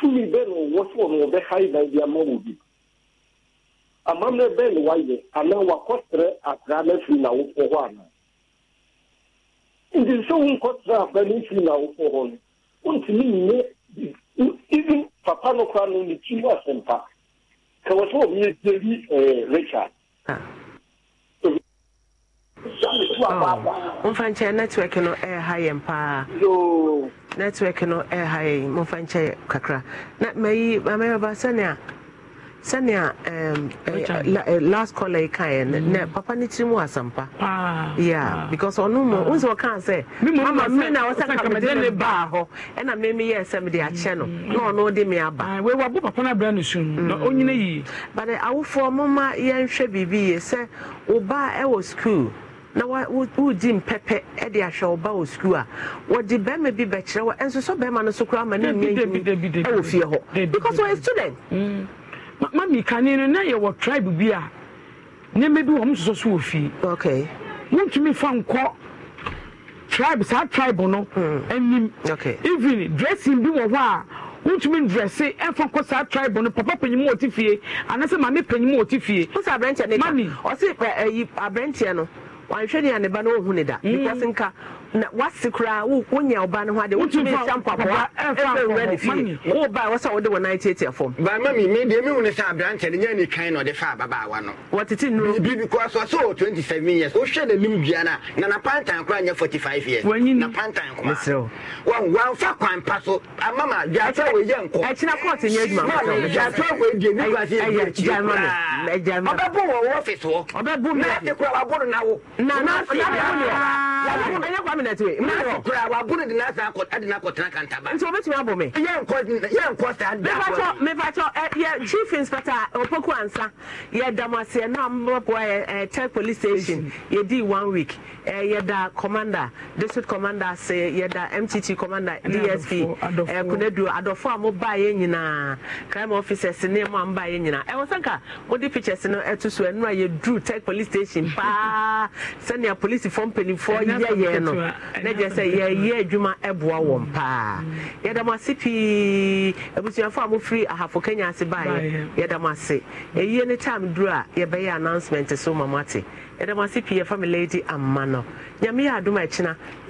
tumi bɛɛ na ɔwɔ so ɔno ɔbɛha yi dan bi ama wɔ bi amammerɛ bɛɛ na wayɛ anaa wakɔsrɛ akra na firi na awofoɔ hɔ anaa nti sɛ wonkɔsrɛ akra na firi na awofoɔ hɔ no wontumi nyɛ even papa no koraa no ne tiri asɛmpa ka wɔ sɛ ɔmeyɛ richard ah. momfa nkyɛn network no ɛɛha yɛn paa network no ha yɛn momfa nkyɛn kakra na mayi amayɛba sɛnea sɛnea eh, eh, last caller yi kaeɛ nɛ, mm-hmm. na papa no tiri mu asɛmpa ya, because ɔno mu wo sɛ ɔkaa sɛ mama me na wɔsɛ kamede ne baa hɔ ɛna me meyɛɛ sɛ mede akyɛ no mm-hmm. na ɔno de me aba wɔabo papa no abrɛ no su no na ɔnyina yie mm. but eh, awofoɔ moma yɛnhwɛ biribi yie sɛ wo baa ɛwɔ school na wogye mpɛpɛ de ahwɛ ɔba wɔ sukuu a wɔde bɛrima bi bɛkyerɛ wɔ ɛnso sɛ bɛrima no so koraa ma ne nnua ntumi wɔ fie hɔ because wɔyɛ student mm. mami kane no na yɛwɔ tribe bi a nneɛma bi wɔ m soso so wɔ fie wontumi fa nkɔ tribe saa tribe no mm. anim even dressing bi wɔ hɔ a wontumi ndrɛse ɛfa nkɔ saa tribe no papa panyin mu ɔte fie anasɛ maame panyin mu ɔte fie. wosa aberanteɛ ne ka ɔsi aberanteɛ no wanhwɛ ne a ne ba no ne da mm. because nka na wasi koraa wonya ɔba no ho adeɛ wotumi nsa mpapoa ɛfɛ nwura ne fie woba a wɔsɛ wode wɔ nan tietia fam baama mi me deɛ mehu ne sɛ aberantɛ no nya ne kan na ɔde fa ababaawa no wɔtete nnuro bi because ɔsɛ wɔ 27 years wohwɛ n'anim dua no a na napantan koraa nyɛ 45 years napantan koma wamfa kwan pa so ama ma dwatɔ wɔyɛ nkɔ ɛkyena kɔɔte nyɛ adwuma dwatɔ wɔdie ne kura sɛ ɔbɛbo wɔ wɔ hɔ na ate kora waboro na wo minute wei mmerɛ kora wabone de nasa ade no akɔtena kantaba nti wobɛtumi abɔ me yɛnkɔ saa da mefakyɛ yɛ chief inspector eh, opoku ansa yɛda mo aseɛ na mmɔboa ɛ tech police station yɛdii one week ɛ eh, yɛda commander district commander ase yɛda mtt commander dsp eh, kunaduo adɔfo a mobaa yɛ nyinaa crime officers ne mu a mbaa yɛ nyinaa ɛwɔ sɛ nka di pictures no ɛto so ɛno a yɛduru tech police station paa sɛnea polisifoɔ mpanimfoɔ yɛyɛ no na gye sɛ yɛyɛ adwuma ɛboa wɔn paa yɛda mo ase pii abusuafo a mofiri ahafo kenya ase baeɛ yɛda mo ase ɛyie ne time duru a yɛbɛyɛ announcement so ma mo ate yɛda mo ase pii yɛfa me lady amma no nyame yɛ adom a ɛkyena